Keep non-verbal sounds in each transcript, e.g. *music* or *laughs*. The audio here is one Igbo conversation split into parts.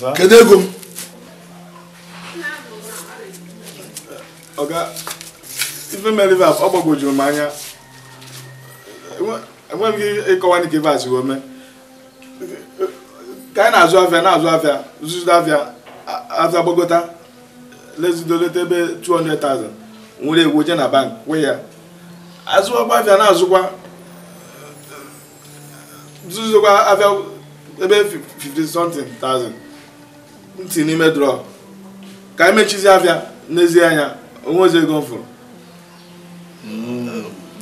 kedu ego m ife mere ife ọ gbagwojuru m anya enweghị m ịkọwa dịka ife a siwo mee ka anyị na-azụ afịa na-azụ afịa zụzụ afịa afịa gbagota lezidoleta ebe 200,000 nwere egwu je na bank kwụ ya azụọkwa afịa na-azụkwa zụzụkwa afịa ebe 50 something thousand ntị n'ime drọp ka anyị mechizi abịa n'ezie anya onwe ozi ego m fụrụ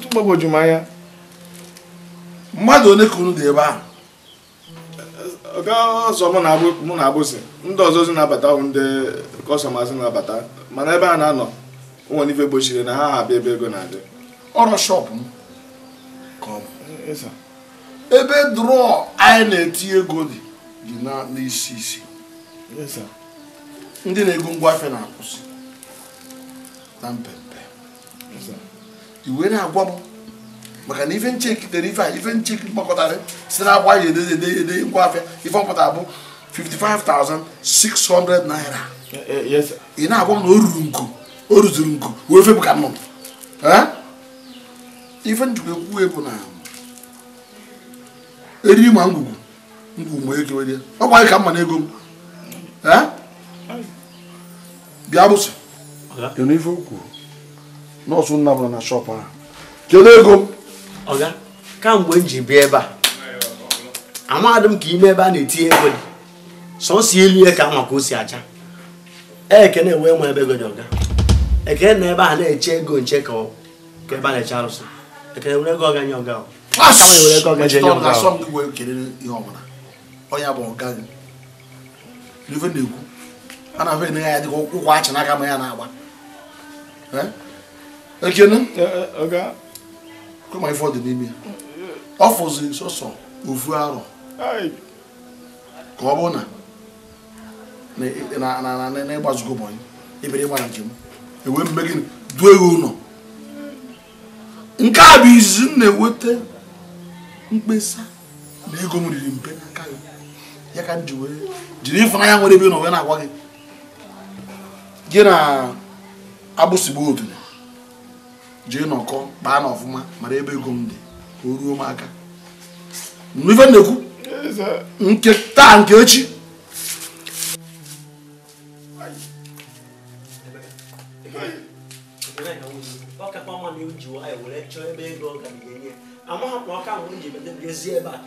mgbagwoju m anya mmadụ one ka unu dị ebe ahụ oke ọzọ mụ na abụzi ndị ọzọ zi na-abata bụ ndị na-abata mana ebe a na-anọ nwere ife gbochiri na ha abịa ebe ego na-adị ọrụ shọpụ m ebe drọ anyị na-eti ego dị dị n'isi isi ndị na-ego ngwa afịa na-akwụsị na mpempe iwe na-agwa m maka na ife nche kitere ife a ife nche mkpakọtara si na agba ya edeze ede ede ngwa afịa ife ọpụta bụ 55,600 naira eh, eh, ị na-agwa m na o ruru nku o ruzuru nku wee febu ka nnụnụ eh? ife njikwa ekwuwe bụ na eriri ma ngwugwu ngwugwu ma ekewere ọ gwaghị ka mma na ego m bịa arụsị kedu ife kwuru nọọsụ nna bụla na shọpụ ahụ kedu ego m kamgbe m ji bịa ebe a amadị m ka ime ebe a na-etinye ego dị sọsọ elu ya ka maka o si acha ekene wee nwe ebe ego dị ọga ekene na ebe a na-eche ego nche ka ebe a na-eche arụsị ekene were ego ọga nye ọga ọ were ego ọga nye ọga onye bụ ọga ife na-ekwu a na afọ enegha ya dịka ụkwụ achị na-aka ma ya na-agba ekene e, kụma ife ọ dị n'ime ya ọ fụzi sọsọ ofu arọ ka ọ bụ na ịgbazugo ụbọchị ebere ịgba njem ewe mme gịnị duo ya ụlọ nke a bụ izizi m na-eweta mkpesa na ego m riri mpe ya ka m ji wee jiri ifeanya nwere ebe na wee na-agwa gị gị na agbụsigbu otu jee nọkọ kpaa na ọfụma mara ebe ego m dị ka o ruo m aka ife na-ekwu nke taa nke echi amaghị m na ọka mgbe m ji ebe a ka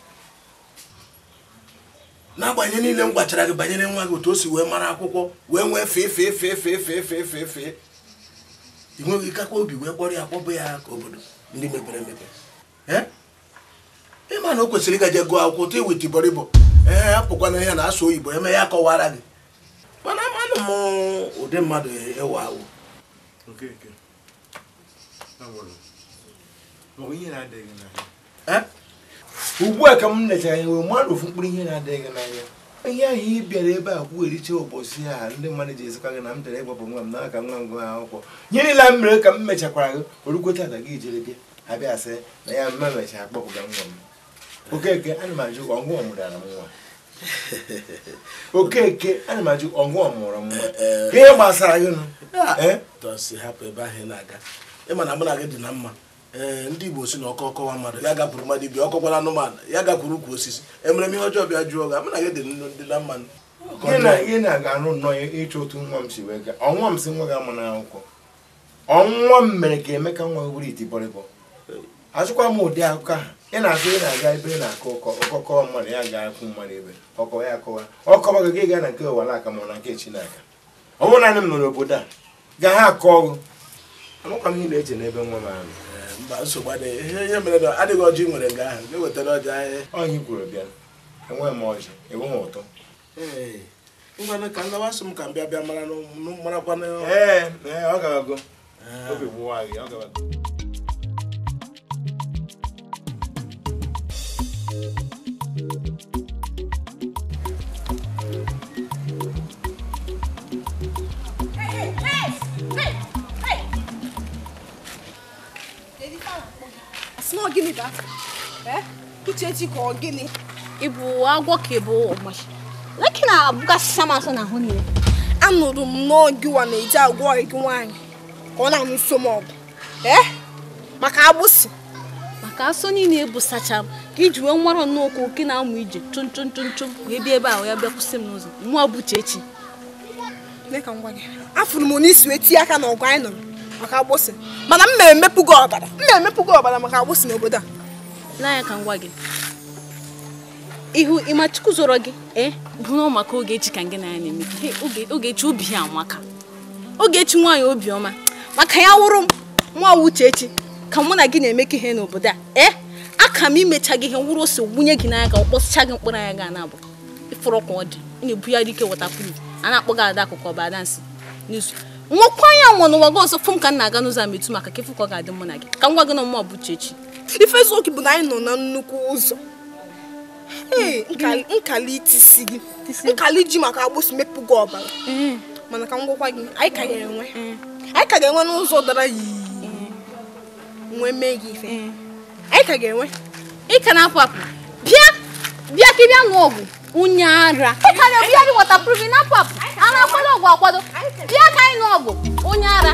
n'agbanyeghị niile m gwachara gị banyere nwa gị otu o si wee mara akwụkwọ wee nwee fee fee fee fee fee fee fee fee ị nweghị ikakwa obi wee kpọrọ ya kpọbụ ya ka obodo ndị mepere emepe ma na o kwesịrị ịgaje gụọ akwụkwọ tụ iweta e ibọrọ ibọ ee apụkwana ya na asụ oyibo eme ya kọwara gị mana amanụ m ụdị mmadụ ewe awụ ee ugbu a ka m nechara ya nwere mmadụ ofu mkpụrụ ihe na-adịghị n'anya ihe ahụ ị bịara ebe a kwugheriche ụbọchị a ndị mmadụ ji ezikwa gị na m jere ịgbapụ nwa m n'aka nwa m gụa akwụkwọ nye niile m mere ka m mechakwara gị orukwe tata gị jere bịa abịa sị na ya mma mechara akpọpụga nwa m okeke ana m ajụ ọgụ ọmụdara m nwa *laughs* okeke ana m ajụ ọgụ ọmụrụ m nwa eh, eh. ka ihe gbasara gị nụ ah, eh? ịma na aga mụ na gị dị na mma ee eh, ndị igbo si na ọkọ ọkọwa mmadụ ya gakwuru mmadụ ibi ọkọkwara anụmanụ ya gakwuru ukwu osisi emere m ihe ọjọọ bịa jụọ ga amana gị dị na mmanụ ihe na-aga-arụ nnọọ ịchọ otu nwa m si wee gaa ọnwa m si nwa gị ama n'akwụkwọ ọnwa m mere ka emeka nwa wuru iti bọrịbọ azụkwa m ụdị akụkọ ha ị na-asị ị na-aga ebe ị na-akọ ụkọ ọkọkọwa mmadụ ya ga-akwụ mmadụ ebe ọkọwa ya akọwa ọkọwa gị gị gaa na nke ụwa n'aka ma na nke chinaka ọ bụrụ naanị m nọ obodo a gaa ha akọ ọgụ amụkwa m ihe na-eche n'ebe nwa m ahụ mba nsogbu adịghị ihe ihe mere na adịghị ọjị nwere nga ahụ ga-ewetara ọjị anyị ọnyị gwuru bịa enweghị m ọjị enweghị m ụtọ ngwanụ ka nlawa nsọ m ka m bịa bịa mara marakwana ee ọ gabago ah. obi gbuwa gị ọ gabago small gịnị da uchechi ka ọ gịnị ịbụ agwọ ka ịbụ ọmachi leki na abụgasịsa m asọ n'ahụ niile anụrụ m n'oge na-eji agwọ gị nwaanyị ka ọ na-anụ so m ọgụ maka agbụsị maka na ebusacha m ka iji nwara nnukwu oke na-amụ ije chụm ebe ahụ ya bịa kwụsị m n'ụzọ afụrụ m n'isi aka n'ọgụ anyị nọrọ maka agbụsị mana m na-emepụgo ọbara m na-emepụgo ọbara maka agbụsị n'obodo a n'anya ka m gị ihu ịmachukwu zọrọ gị ee eh, bụrụ maka Ogechi ka gị na ya na-eme Ogechi obi ya amaka Ogechi nwaanyị obiọma maka ya wụrụ nwa Uchechi ka mụ na gị na-emekọ ihe n'obodo a ee eh, aka m imecha gị ihe nwụrụ ose wunye gị n'anya ka ọ kpọsịcha gị mkpụrụ anya ga na-abụ ịfụrụ ka ọ dị ị na-ebu ya dike wọtapuru a na-akpọ gị ada akụkọ ọba dansị n'izu nwekwa ya nwa n'ụwa gị ọzọ fụ m ka m na-aga n'ụzọ ama etu maka ka ịfụ ka ọ ga-adị mụ na gị ka m gị na mmụọ bụ chechi ife eziokwu bụ na anyị nọ na nnukwu ụzọ nkali itisi gị nkali ji maka agbụsị mepụ gị ọbara mm. mana ka m gwakwa gị mm. anyị ka ga-enwe mm. anyị ka ga-enwe n'ụzọ dara yii nwee mee gị ife anyị ka ga-enwe ị ka na-apụ apụ bịa bịa ka ị bịa nwụọ ọgwụ unye ara ịkara obi ya dị wọtapruvin na apụ a na-akwado ọgwụ akwado bịa ka anyị nụ ọgwụ onye ara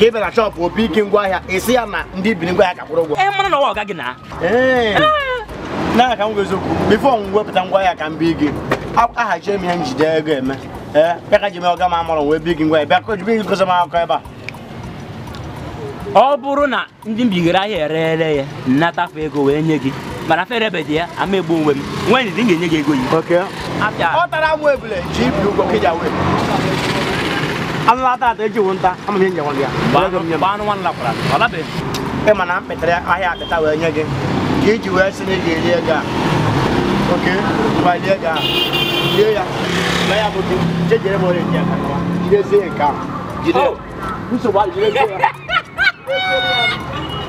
ka ị bịa na shọpụ opi ike ahịa esi ya na ndị biri ngwaahịa ka kwụrụ ụgwọ ee mana na ọwa ọgaghị na na ka m eziokwu bifo m wepụta ahịa ka m bie gị ahajie m ihe njide ego eme ee bịa ka ji mee ọga m amụrụ wee bi gị ngwaahịa bịa kojibe gị gosi m akụkọ ebe a ọ bụrụ na ndị mbigara ahịa erere ya nnatafụ ego wee nye gị mana fere ebe dị ya ama egbu onwe m nwanyị dị m ga-enye gị ego yi ọ tara m ebule ji ibi ụgwọ ka ji amma ta ta ji wonta amma nyen dia ba ba no wan la kula wala be e mana petre aya ta ta we nyege ki ji we sini ge le ga okay ba le ga ye ya ba ya bo ti je jere bo le dia ka wa jire se ka jire muso ba jire se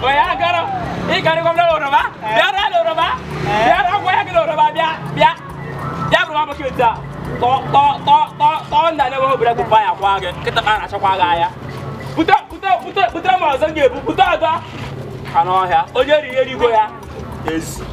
o ya garo i gari ko lo ro ba ya ra lo ro ba ya ra ko ya lo ro ba bia bia ya bro ba ko ta tọọ ndị anya obere bụ paya kwa gị nkịta ka a na-achakwa gị anya bute bute ma ọzọ ga-ebu bute ọzọ ka n'ọhịa onye riri erigo ya ezi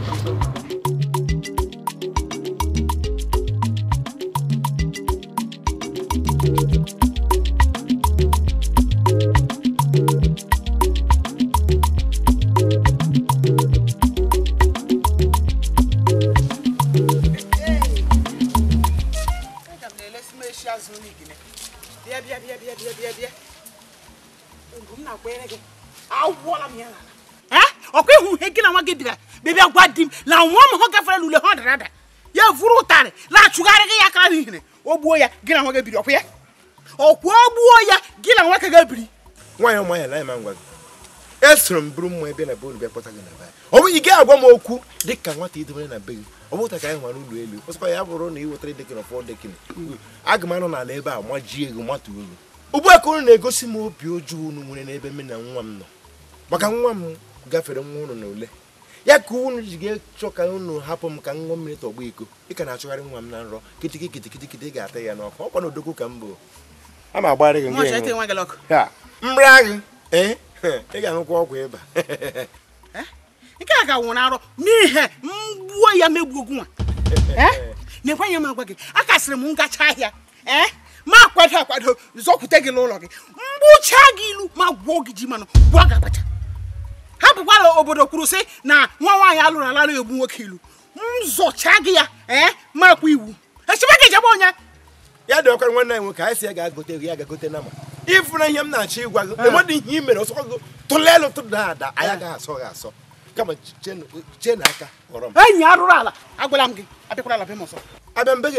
ọkwa ịhụ ihe gị na nwa gị bịara bịa gwa di m na nwa m hụ gafere n'ule ha dara ada ya vụrụ ụtarị na-achụgharị gị ya akara n'ihiri o gbuo ya gị na nwa gị biri ọkwa ya ọkwa o gbuo ya gị na nwa ka gị biri nwaanyị ọma ya lanyị ma ngwa gị esoro m bụrụ mma ebe na be bịa kpọta gị na be ọ bụghị gị agwa m okwu dị ka nwata idobere na be gị ọ bụta ka anyị hụrụ ụlọ elu ọsịkwa ya bụrụ na ị wetara dekịn ọfọ dekịn aga m anọ n'ala ebe a ma jie gị matu uru ugbu a ka unu na-egosi m obi ọjọọ unu nwere n'ebe m na nwa m nọ maka nwa m gafere nwa unu na ule ya ka unu ji ga-achọ ka unu hapụ m ka m ṅụọ mmiri tọgbọ iko ị ka na-achọgharị nwa m na nrọ kitiki kitiki kitiki ga-ata ya n'ọkụ ọkwa na odogwu ka m bụ a ma agbara gị mri agị ee ị ga-aṅụkwa ọgwụ ịba *laughs* eh, nke a ka nwụrụ arọ n'ihe mgbuo ya megbuo gị nwa *laughs* eh, na-ekwenye m agwa gị a kasịrị m ngacha ahịa eh, ma akwado akwado zọkwute gị n'ụlọ gị mgbucha gị ilu ma gwuo gị ji manụ gwuo gị ha obodo kwuru sị na nwa nwaanyị alụrụ ala egbu nwoke ilu m zọcha gị ya ee eh, makwa iwu echebe gị jebe onye ya dị ọkara nwanne anyị nwoke anyị si ya ga-agote ego ya ga na ma ihe m na-achọ ịgwa gị ihe i mere ọsọ gị tụda ada anyị agaghị asọ gị asọ kama chee kpọrọ m enyi arụrụ ala agwala m gị ala m abịa mbe gị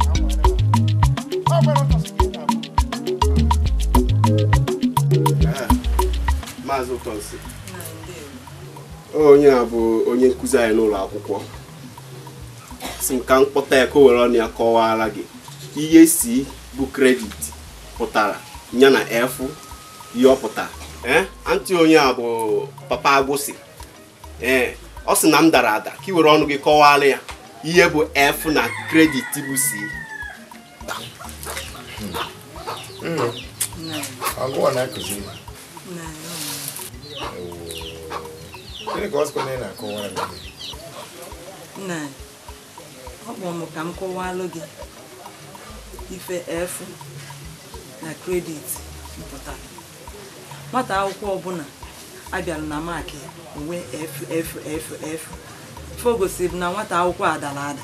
maazị ụtọnsi onye a bụ onye nkụzi anyị n'ụlọ akwụkwọ si m mkpọta m ya ka o were ọnụ ya kọwara gị ihe si bụ kredit pụtara ya na efu ihe ọ pụtara onye a bụ papa agwụsị ọ sị na m dara ada ka i were ọnụ gị kọwara ya ihe bụ efu na kredit bụ si nnu agụwa na-akụzi ma gịnị ka ọzụkọ na ị na-akọwara m nna ọ kpọrọ ka m kọwalụ gị ife efu na kredit mpụtara nwata akwụkwọ ọbụla abịara na maakị onwe ffff o gosiri na nwata akwụkwọ adara ada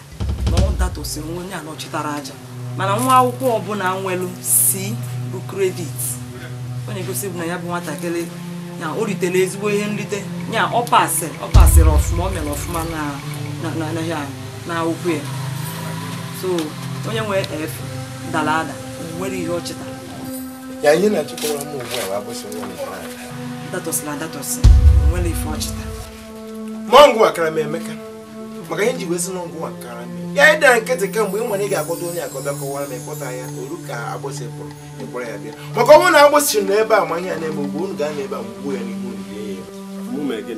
na ọ datosiri onye anọchitara aja mana nwa akwụkwọ ọbụla nwelu si bụ kredit onye gosi bụ na ya bụ nwatakịrị ya o ritere ezigbo ihe nrite ya ọ pasịrị ọ pasịrị ọfụma ọ mere ọfụma na akwụkwọ ya so onye nwee f dara ada nwere ihe ọchịta ya nye na ugbu nwere ife ọchịta mọngụ akara m emeka maka ihe e ji wee sị na ya ịdara nkịtị kemgbe ị nwere ị ga onye akọbịa kọwara ma ịkpọta ya oru ka agbụsị pụrụ ịkpọrọ ya bịa maka ọnwụ na agbụsị nọ ebe a ma ihe na-eme ugbo unu ga ebe a ya n'ihu mgbe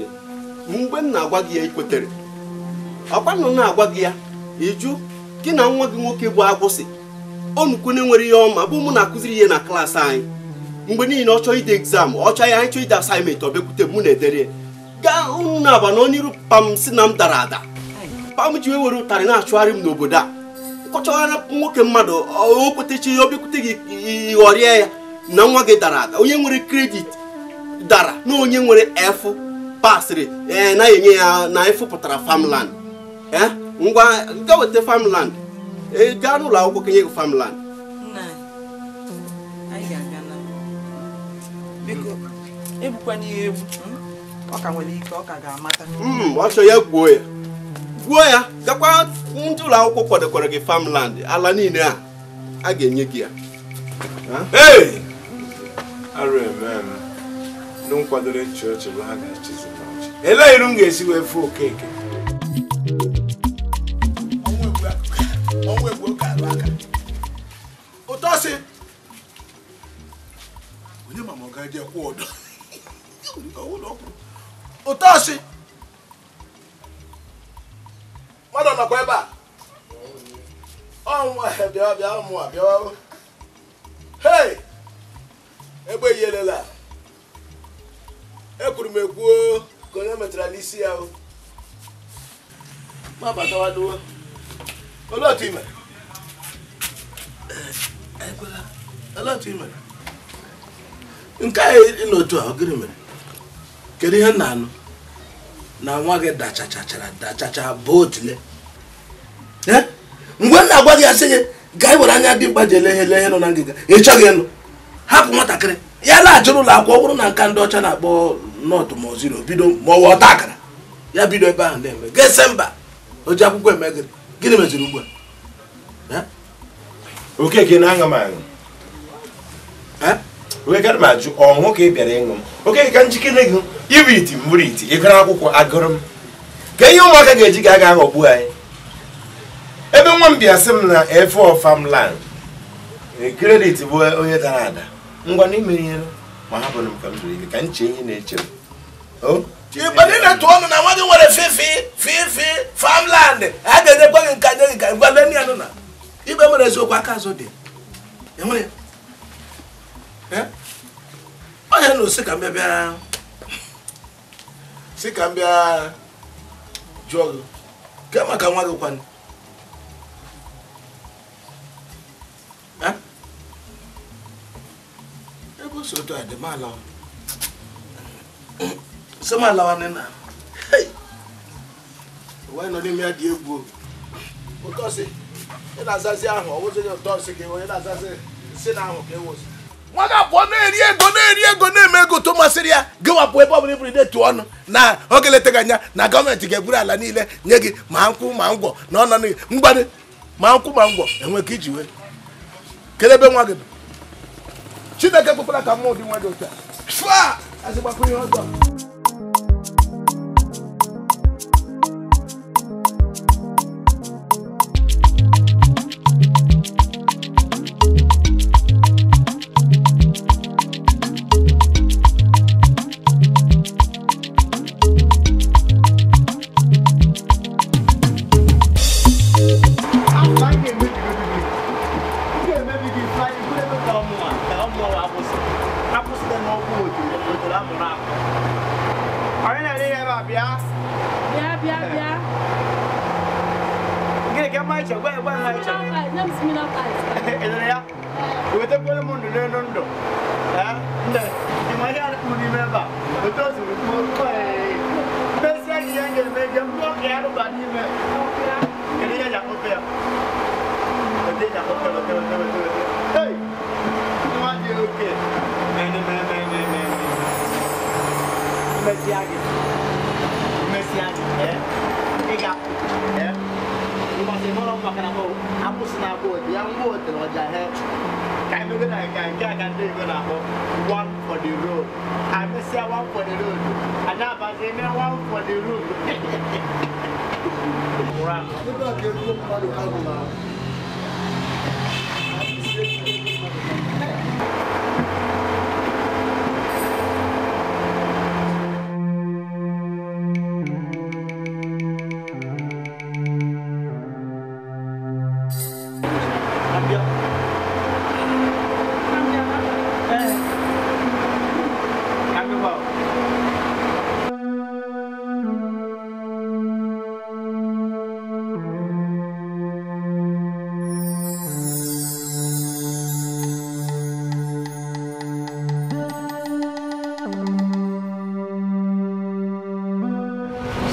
m na-agwa gị ya ikwetere ọkwa na-agwa gị ya ịjụ gị na nwa gị nwoke bụ agbụsị onukwu na ihe ọma bụ mụ na-akụziri ihe na klaasị anyị mgbe niile ọ ide egzam ọ ya anyị chọọ ide asaịmentị ọ m na-edere gaa unu aba na onye iru si na m dara ada mkpa m ji were ụtarị na-achụgharị m n'obodo a kọchara nwoke mmadụ okwetechi obikwute gị ịghọrịa ya na nwa gị dara ada onye nwere kredit dara na onye nwere efu pasịrị na-enye ya na efu pụtara famland ee ngwa ga weta famland gaa n'ụlọ akwụkwọ kenye gị famland ọ ya gbuo ya gwuo ya gakwa ndị ụlọ akwụkwọ kwadokwara gị farmland ala niile a a ga-enye gị ya ndị nkwadoro bụ n'ọchị m ga-esi wee fụ okeke ụtọsị onye ma ma ọ gaje kwụ ụdọ nọkwa ebe a ọnwụ *laughs* bịa bịa ụmụ a bịa egbe yelela ekwuru m ekwuo ka onye metara n'isi ya o ma otu ime eh, eh, nke anyị a mere kedu ihe nna anụ na nwa gị dachachachara dachacha bụ ya gị gaa were anya dimkpa ji ele ihe na ngịga ị chọghị ịnụ hapụ nwatakịrị ya laghachịrị ụlọ akwụkwọ ọ na nka ndị ọcha na-akpọ nọọtụ ma oziro bido ma akara ya bido ebe ahụ na-eme ese mba oji akwụkwọ eme gịrị gịnị meziri ugbu a eh? okeke na m aṅụ eh? ajụ ka ị bịara ịṅụ m okeke njikere gị iti mbụrụ iti akwụkwọ agụrụ m ka ihe ụmụaka ga-eji ga aga aghọgbu anyị ebe nwa m bịa sị m na efe ọfamland kredit e, bụ onye dara ada ngwa na imere ihe ma hapụrụ m ka m zuru ike ka nche ihe na-eche m ịgbadị na tụọ ọnụ na nwa gị nwere fifi fifi famland a ga-edekwa gị nka nye nka ngwa lenị ya nụ na igbe mere eziokwu aka azụ dị enwere onye na osi ka m bịa sị ka m bịa jụọ gị kemaka nwa gị kwanụ ị na ahụ si nwa ga-abụọ na-eri ego na-eri ego na-eme ego to masịrị ya gị ebe ọbụla ibụrụ idetu ọnụ na oge letaghị anya na gọọmenti ga-eburu ala niile nye gị ma nkwụ ma ngwọ na ọnọdụ mgbadị ma nkwụ ma ngwọ enwe ka iji wee ebe nwa gị bụ chineke kpụkpara ka mmụọ dị nwa dị otu a shwa azịgbakwu ihe ọzọ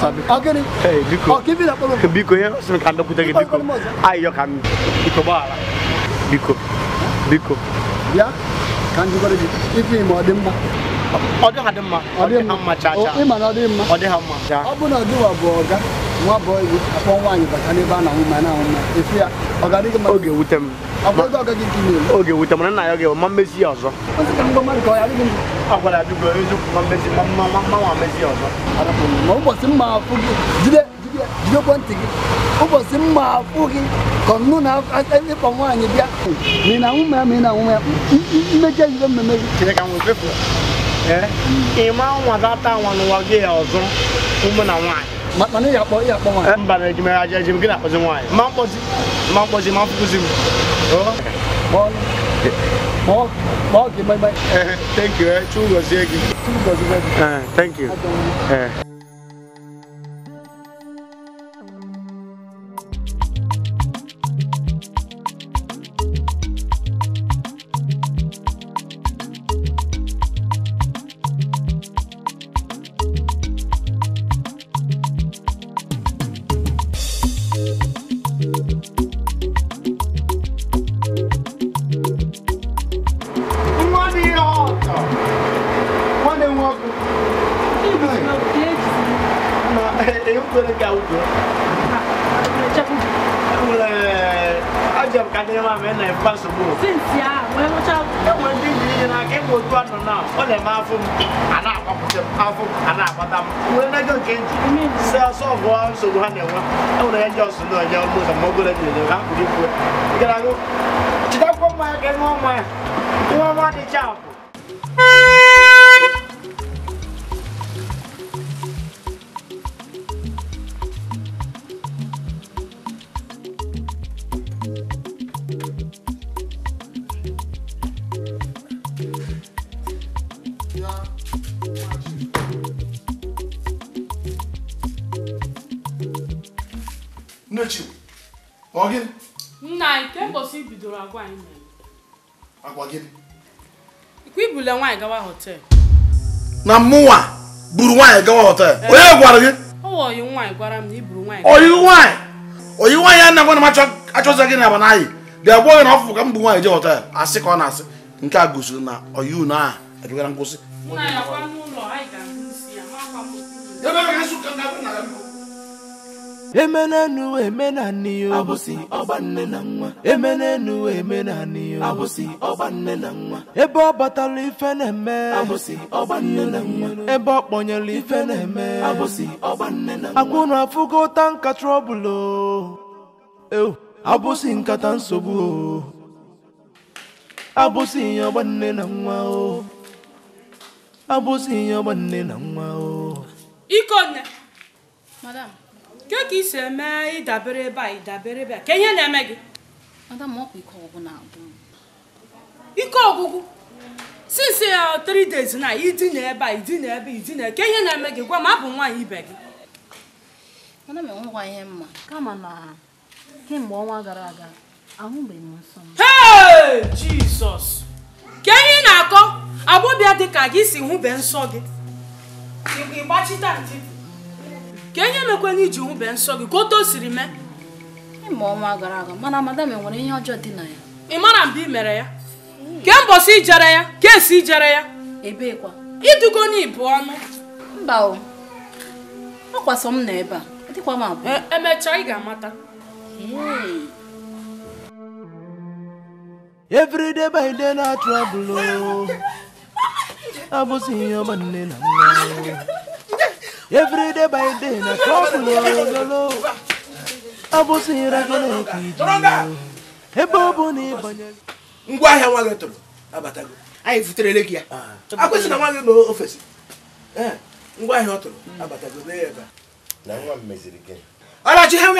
oke, Eh, biko. Oh, kivi oh, oh, oh, na polo. Biko ya, simekanda Ayo kan. Biko bala. Biko. Biko. Ya. Kan juga lagi. Ifi mau ada mma. Ada ada mma. Ada mma caca. Oh, iman ada mma. Ada mma. Abu na dua boga. Nwa boy akwa nwanyi bakane ba na ya. oke dike ma. Oge wutem. oke oga gigi ni. Oge wutem na na ya oge ya zo. akwara adugo ezu ma mmezi ma mma ma mma ma mmezi ọzọ ma ụbọchị mma afụ gị jide jide jidekwa ntị gị ụbọchị mma afụ gị ka ọnụ na ịkpọ nwaanyị bịa mị na nwume mị na nwume mmejọ ihe mmemme gị chere ka nwe fefu ịma nwa data nwa n'ụwa gị ya ọzọ ụmụ na nwaanyị mana ya akpọ ya akpọ nwaanyị mba na ejimere aja ejim gị na-akpọzi nwaanyị ma mkpọzi ma mkpọzi ma mfụkụzi m Eh, thank you. Eh. Eh, thank you. nne ọ nna nke mbọsị bidoro agwa anyị agwa gịnị ikwu ibule nwaanyị gawa na mụnwa buru nwaanyị gawa họtel eh. onye gwara gị oyi nwaanyị gwara m na iburu oyi nwaanyị oyi nwaanyị a na m achọzọ gị na gị na ọfụfụ ka m bụ nwaanyị hotel họtel asị ka ọ na-asị nke a gosiri na oyi unu ebigara nkwụsị emenenu emenani yo abụsị ọgba nne na nwa emenenu emenani yo abụsị ọgba nne na nwa ebe ọ batara ife na-eme abụsị ọgba nne na nwa ebe ọ kpọnyere ife na-eme abụsị ọgba nne na nwa akwụna afụgo ụta nka trọbụlụ abụsị nkata nsogbu o abụsị ihe ọgba nne na nwa o abụsị ihe ọgba nne na nwa o ikonne madam nke ka i si eme ịdabere ebe a ịdabere ebe a ka ihe na-eme gị ike ọgwụgwụ since ya uh, three days na idina ebe a idina ebe idina ke ihe na-eme gị gwa m abụ nwaanyị ibe gị jizọs ka ihe na-akọ agbọbịa dị ka gị si hụbe nsọ gị ịgbachite ntị ka enye mekwena iji nwube nsọ gị ka otu o siri mee ịma ọnwa gara aga mana madam e nwere ihe ọjọọ dị na ya ị mara mba ị mere ya ke mbọsị ijere ya ka esi ijere ya ebekwa idugo bu ọnụ mba o ọkwasọ m na ebe a dịkwa m abụọ e, emecha ị ga-amata Every by day na trouble oh. *laughs* abụsị ihe ọma nne na nwa every day by day na trouble ololo ọ ire gị eke iji ebe ọ bụ na ịbanye ngwa ahịa nwa gị tụrụ abatago anyị gị ya ah. akwụsị na nwa gị nọ ofesi eh, ngwa ahịa ọ tụrụ abatago ya na nwa m meziri gị ha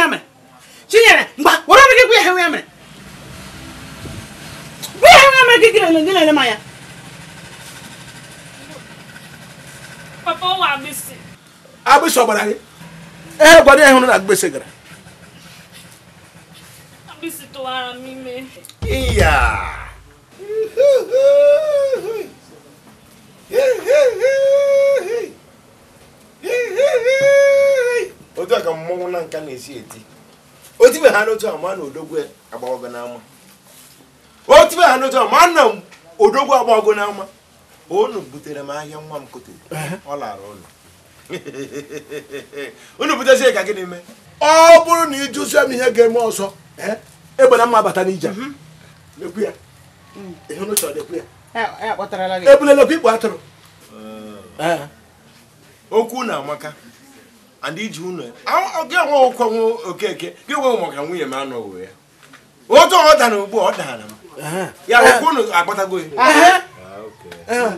mgba were ọrụ gị gwa ihe na-ele papa ọ wa agbịsị ọgbara gị ee gwara ya hụrụ na agbịsị gara iya otu a ka mmọnwụ na nka na-esi eti otibe ha n'otu ama na odogwu agbawago n'ama otibe ha n'otu ama na odogwu agbawago n'ama unu butere m ahịa nwa m kotere ọ lara ụlọ *laughs* unu butezie ka gịnị mee ọ bụrụ na ịjụzie m ihe ga-eme ọzọ eh, egbena mma bata n'ije ebulelekwa ikpo atụrụ ah. eh. okwu na amaka and iji unu e. gị onwe ụkwọ nwe okeke gị nwe maka nwunye m anọghị ya otu ọ dara ugbu ọ dara m eh. ya okwu unu agbatago ya ah,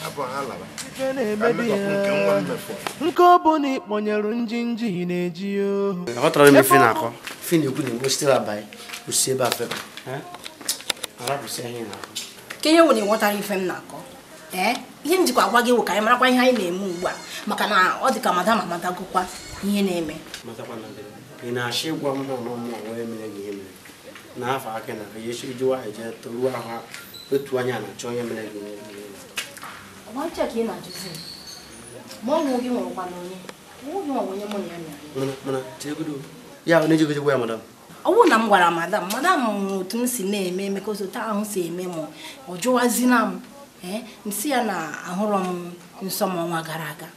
nke ọ bụ na ịkpọnyere njinji na-eji ohu aghọtara m ife na-akọ na-akọ na ịghọtara m na-akọ ihe m jikwa agwa gị wụ ka anyị marakwa ihe anyị na-eme ugbu a maka na ọ dị ka madam amadagokwa ihe na-eme na na ihe na toruo ahụ otu anya na-achọ onye mere ọgba ncha ka ị na-ajụzi ma ọnwụ gị nwụrụkwa na onye ọnwụ nwa onye mụ na ya mere ọnwụ na m gwara madam madam mụrụ otu m si na-eme emeka osote ahụ si eme m ọ jụwazina m ee eh, si ya na ahụrọ m nsọ m ọnwa gara aga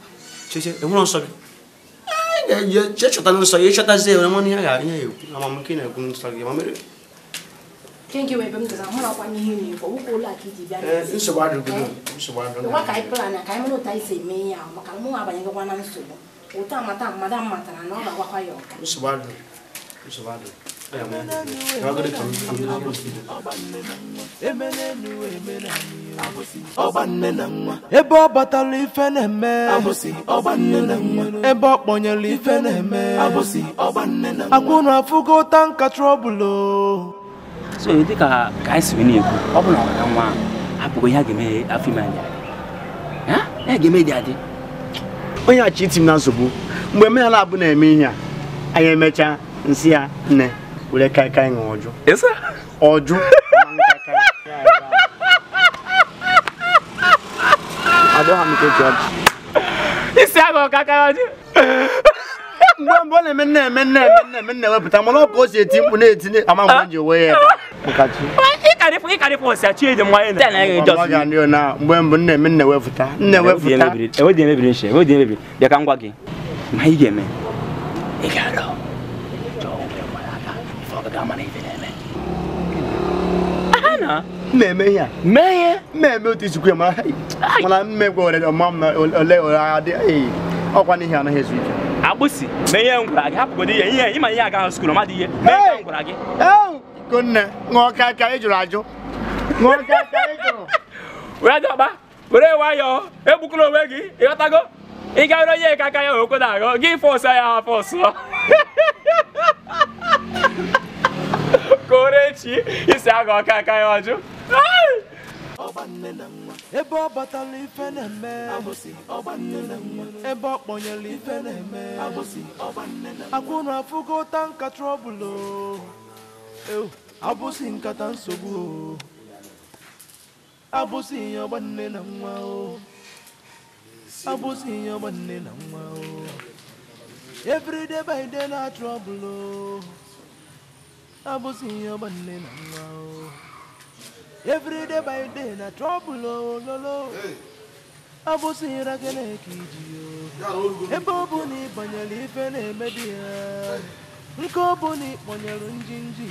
gị chọta nsọ ya ịchọtazi ya mmanụ ga-ekwu na-ekwu nsọ gị ma mere nsogbu adịghị nsogbu adịghị ebe ọ batara ife na-eme ebe ọ kpọnyere ife na-eme akwụna afụgo tanka trọbụlụ so dịka ka anyị ọ bụ na nwa hapụgo ihe a ga-eme afọ ime anya ya ga mee dị adị onye achi iti na nsogbu mgbe m na na-eme ihe a anyị emechaa nsị ya nne were kaikai ṅụọ ọjụ ọjụ adọghị *laughs* m ka eji ọjị *laughs* mgbe mgbe ọ na-eme nna eme nna eme nna eme nna ewepụta mana ọ ka o si eti mkpu na-etinye ama mgbe ji onwe ya ebe mgbe mbụ nna eme nna ewepụta nna ewepụta ka ihe a mee ihe mmemme otu isikwu ya mana mmegwe ole ọkwa n'ihi anaghị ezu ike agbụsị na ihe ngwara gị hapụgodo ihe ihe ịma ihe agaghị skul dị ihe mee ka ngwara gị ikonne ṅụọ ka ị jụrụ ajụ ṅụọ ka aka jụrụ *laughs* were dọba were nwayọọ egbukọla onwe gị ịghọtago ị gaghịrị onye ka aka ya okwe na-aghọ gị fọsụ ya ha ọsọ. *laughs* ka o ree isi aga ọka aka ya ọjụ ebe ọ batala ife na-eme ebe ọ kpọnyere ife na-eme akwụrụ afụgo ụta nka trọbụlụ abụsị nkata nsogbu abụsị ihe ọgbanne na nwa o abụsị ihe ọgbanne na nwa o everyday by day na trọbụlụ abụsị ihe ọgbanne na nwa o every day by day na trouble ololo abụsịra Chineke iji ebe ọ bụ na ịbanyere ife na-emedi ya nke ọ bụ na ịkpọnyere njinji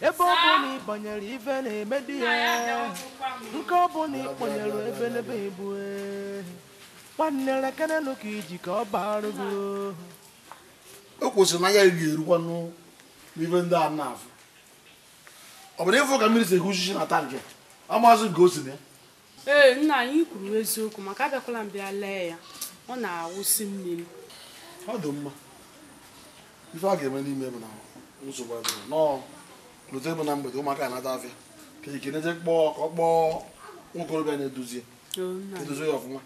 ebe ọ bụ na ịbanyere ife na-emedi ya nke ọ bụ na ịkpọnyere ebelebe ibu nwanne eh. lekere ekenelu ka iji ka ọ baa gị oh. o kwụsịrị na ya ga-erukwa n'ife ndị a na-afụ ọ bụrụ ịfụ ka mmiri si egwu uchichi na tankị ọ maazị nke o si na ee nna anyị kwuru eziokwu maka abịakwala mbịa lee ya ọ na-awụsi mmiri ọ dị mma ife a ga-eme n'ime bụ na nsogbu adịrị nọọ lụta ebe na mgbede ụmụaka anata afịa ka ekene je kpọọ ka ọ kpọọ nwokorobịa na-edozi edozi ya ọfụma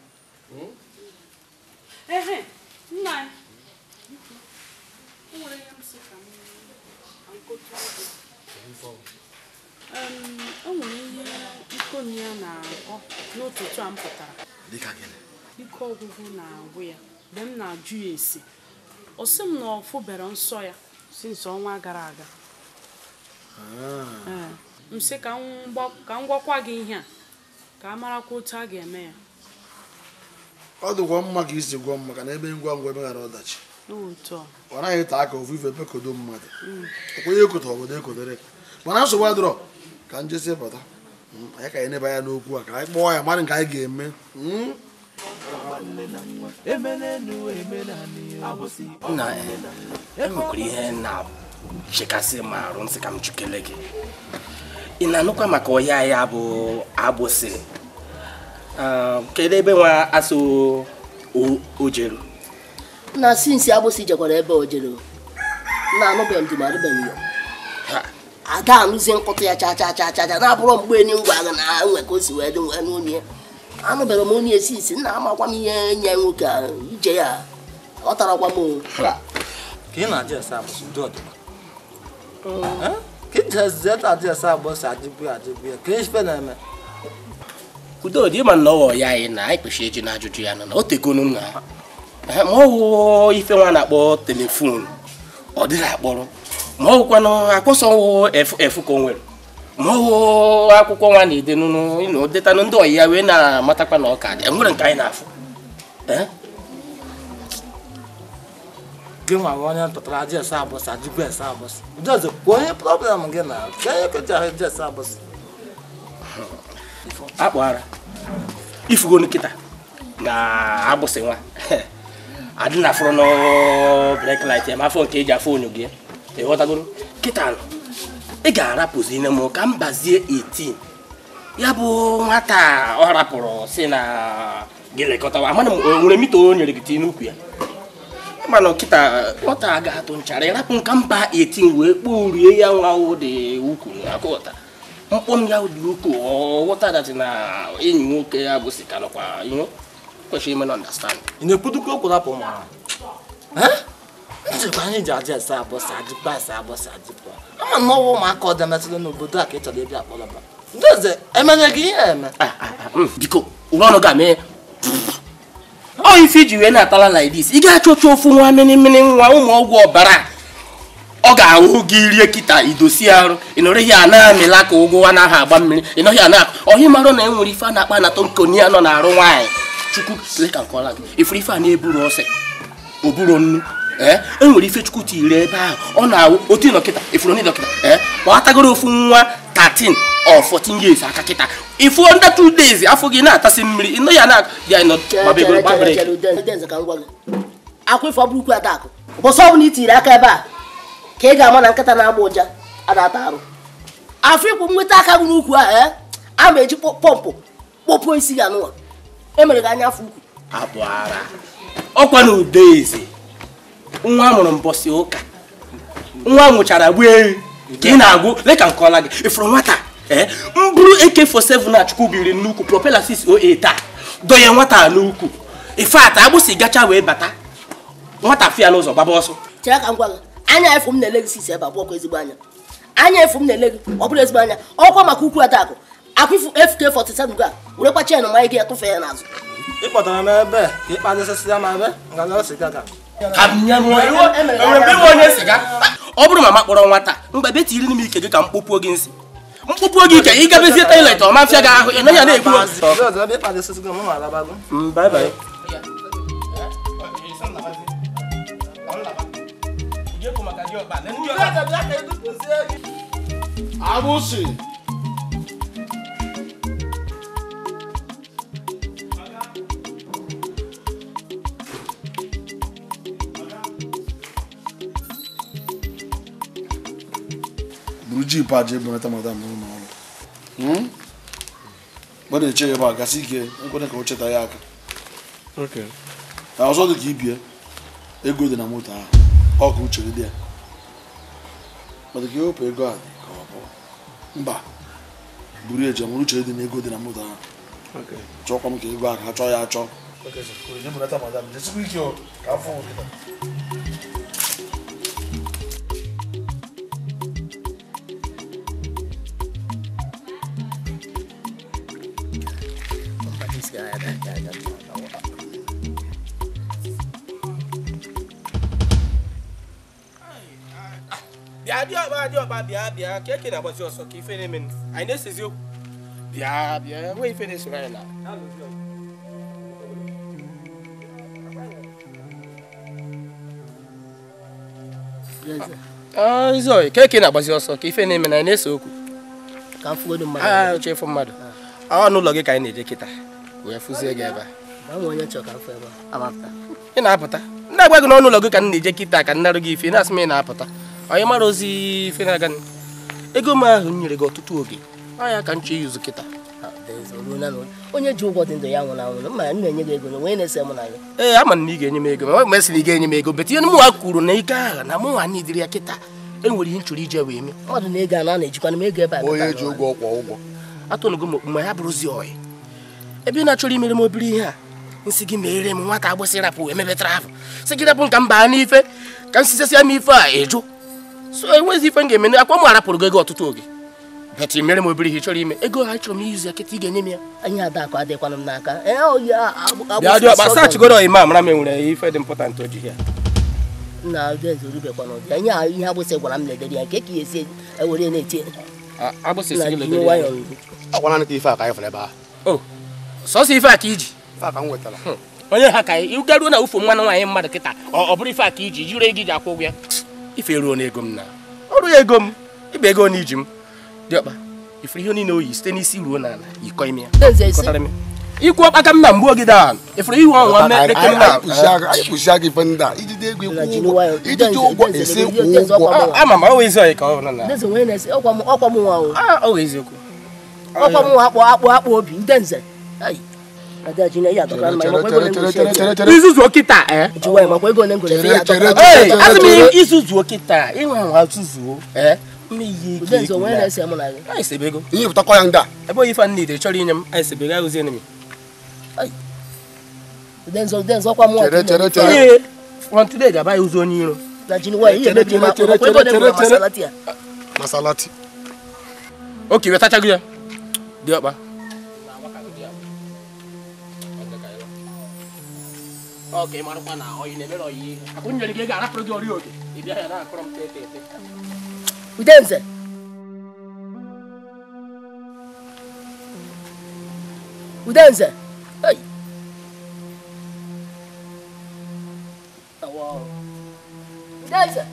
ehe nna anyị nwere ihe m si ka m o nwere ihe nkomi ya na akpọ n'ụtụtụ a m pụtara ike ọgwụgwụ na-agwụ ya mgbe m na-ajụ ya esi ọ sị m na ọ fụbere nsọ ya si nsọ ọnwa gara aga ah. eh, m sị ka m gwakwa gị ihe a ka a marakwa otu a ga-eme ya ọ dịkwa mma ka isi gwọ mma ka na ebe ngwa ngwa emeghara ọdachi ọ naghị taa aka ofu ife ebekodo mmadụ ekwenye mm. ekoto obodo ekodere mana nsogbu adịrọ ka njesi pụta hmm, anyị ka anyị nebe anya n'okwu a ka anyị kpọọ ya mmadụ nke anyị ga-eme hmm? nna enwekwara eh, e ihe na-chekasị ma arụ nsị ka m chukele gị ị na-anụkwa maka ọhịa ya bụ agbụsị ah, kedu ebe nwa asụ ojeru na sinsi agbụsị jekwara ebe ojeru na anụbeghị m ma arụbeghị ya aga alụzie nkụtụ ya cha cha cha cha na-abụrụ mgbe enyi ngwa agha na ha nwe ka o si wee dị wee n'onye anụbara m onye esi isi nna amakwa m ihe nye nwoke a ije ya ọ tarakwa m udodị ma na ọwọ ya anyị na anyị kpechi eji na ajụjụ ya na o tegonu nna ma ọ wụ ife nwa na-akpọ telefonu ọ dịghị akpọrọ ma ọwụkwanụ akwụsọ efu efu ka o nwere ma ọwụ akwụkwọ nwa na ịnụ ndị ọyị ya wee na-amatakwa na ọka dị enwere nke anyị na-afụ gị nwa onye tụtara jes abụsị ajụgo ese abụsị na ifugo nkịta na agbụsị nwa *laughs* adị na afụrụ n'brek lait ma afọ nke ji afọ onyo gị ịghọtagoro kịta ị ga-arapụziri m ka m bazie ya bụ nwata ọ rapụrụ si na gị lekọtawa amana m nwere mita o nyere gị tinye n'ukwu ya mana kịta nwata ga-atụ nchara ịrapụ nka mba 18 wee kpoo rie ya nwa dị ukwu akụghọta mkpọm ya dị ukwuu ọghọta datị na enyi nwoke ya bụ sika ihe kwesịrị ime na ọndastandị ị na-ekwudokwu okwu rapụ ma njikwa anyị ji aja esa abọsa ajịkpa esa abọsa ama na ọwa ụmụaka ọ demetụrụ n'obodo a ka ị chọrọ ịbịa akpọrọba ndị eze emenye gị ihe eme biko ah, ah, ah, hmm, ụra ọrụ ga mee ọ ife iji wee na-atala ị ga-achọ ofu nwa mmiri nwa ụmụ ọgwụ ọbara ọ ga-anwụ gị rie kịta idosi arụ ihe a na-amịla ka ụgwọ anaghị agba mmiri ị ana ọhị marụ na e ife a na-akpa anatọ nọ na arụ nwaanyị chukwu nke nnu Eh? enwere ifechukwu tiiri ebe ahụ ọ na-awụ otu dọkịta ifuru ndị dọkịta kpọtagoro eh? ofu nwa 13 or 14 years aka kịta ifu under two days afọ gị na-atasị mmiri ịnọ ya na-akwa ife ọbụrụkwu adakụ ọbụla aka ebe a ka ị ga-ama na nkịta na-agba ụja a arụ afọ ikwu nweta aka gị n'ukwu a eh? a ma eji pọmpụ kpọpụọ isi gị anụwa emere gị anya afọ ukwu ọkwa na ude eze nwa mụrụ mbọsị ụka nwa nwụchara gbu ehi ka ị na-agwụ leka ọla gị ifuru nwata mbụrụ AK47 na Chukwu biri n'ukwu propela 608 a dọnye nwata n'ukwu agbụsị gacha wee bata nwata fịa n'ụzọ gbaba ọsọ anya na-ele gị sisi ebe ezigbo anya anya efu na-ele gị ọ bụrụ ezigbo anya ọkwa maka ukwu adakụ ya tụfe ya n'azụ ịkpọtara m ebe ka E ọ bụrụ ma kpọrọ nwata mgbe be tiri m ike gị ka m kpọpuo gị nsị mkpụpụ oge ike ị gabezie toilet ọma fịa gị ahụ ị naghị a na-ekwu mm, agbụsị jip aja ebunata madam n'ụlọ ọrụ mgbe hmm? na-eche ya ebe a gasị ike nkwere ka o cheta ya aka ọzọ dị ka ibie ego dị na moto ahụ ọ ka uche dị ya mana ka ewepụ ego a dị ka ọ bụ mba buru eji mụrụ uche dị na ego dị na moto ahụ chọkwa m ka ego ahụ ha chọọ ya achọ ka ọba bịa bịa ka na-agbazi ọsọ ka ife na-eme anyị na bịa bịa ah, ah, na ka eke na-agbazi ọsọ ka ife na-eme ese okwu ka mmadụ mmadụ ọ n'ụlọ gị ka anyị na-eje kịta wee fụzie gị ebe a ị na-apụta ndị agwa n'ọnụ ụlọ gị ka m na-eje kịta ka nnarụ gị ife na-asị m ị na-apụta onye mara ozi ife na ego m ahụ nyere gị ọtụtụ oge anya ka ihe ụzụ kịta onye ji ụgwọ dị ndụ ya nwụrụ anwụrụ mma na-enye gị ego na-ese m ya. ee ama na ị ga-enye m ego ma ma sị na ị ga-enye m ego betinye mụnwa kwuru na ike agha na mụnwa na idiri ya kịta enwere ihe nchụrụ ije wee mee mmadụ na ego anọ a na m ego ebe a onye ji ụgwọ ụgwọ m okpu ma ya bụrụzi oyi ebe na-achọrọ imere m obere ihe a nsị gị mere m nwata agbụsị rapụ wee gị rapụ n'ife ka m m ife a ịjụ so enwezi ife m ga-eme akwa m arapụrụ gị ego ọtụtụ oge bet mere m obere ihe chọrọ ime ego ha chọrọ m izu ya ị ga-enye m ya anyị adakụ adịkwana m n'aka eh, oh, achịgoro ima mara m enwere ife dị mpọtant ya na ezorubekwana ihe agbụsị gwara m ya nke ka ya esi ewere na-eti oh, sọsọ na ufu nwaanyị mmadụ kịta ọ bụrụ ife a ka iji akwụ ụgwọ ife eruo na m na ọrụ ya ego m ịba ego na iji m dị ọkpa ifere ihe niile oyi site n'isi ruo n'ala ikọ ime ya ikwu ọkpaka m na mgbu ogide a ifere ihu ọnwa mmekpeke m na-akpụsia gị ife ndị a ijide ego ijide ụgwọ ese kwụ ụgwọ ama m ọwa ọyị ka ọ bụrụ na ọkwa m ah, akpụ akpụ akpụ obi nde ada jina iya tokran mai mako gole ngole isuzu okita eh jiwa mako gole ngole iya tokran eh azmi isuzu okita inwa wa suzu eh mmiri ihe ike onwe na-ese mụ na gị anyị sebego ihe pụtakwa ya nga ebe oyi fan nidere chọrọ inye m anyị sebego anyị ozienemi denzo denzo kwa mụ chere chere chere on today ga-aba ya ozi onye iro na wa ihe ebe dị mma ọkwa ego dị mma masalati ya oke wetachago ya dị ọkpa Okay, marupa na oyi ne bero yi. Akunyo ni gega rapro di ori oge. Ibi aya na akrom te te te. Udenze. Udenze. Hey. Wow. Udenze.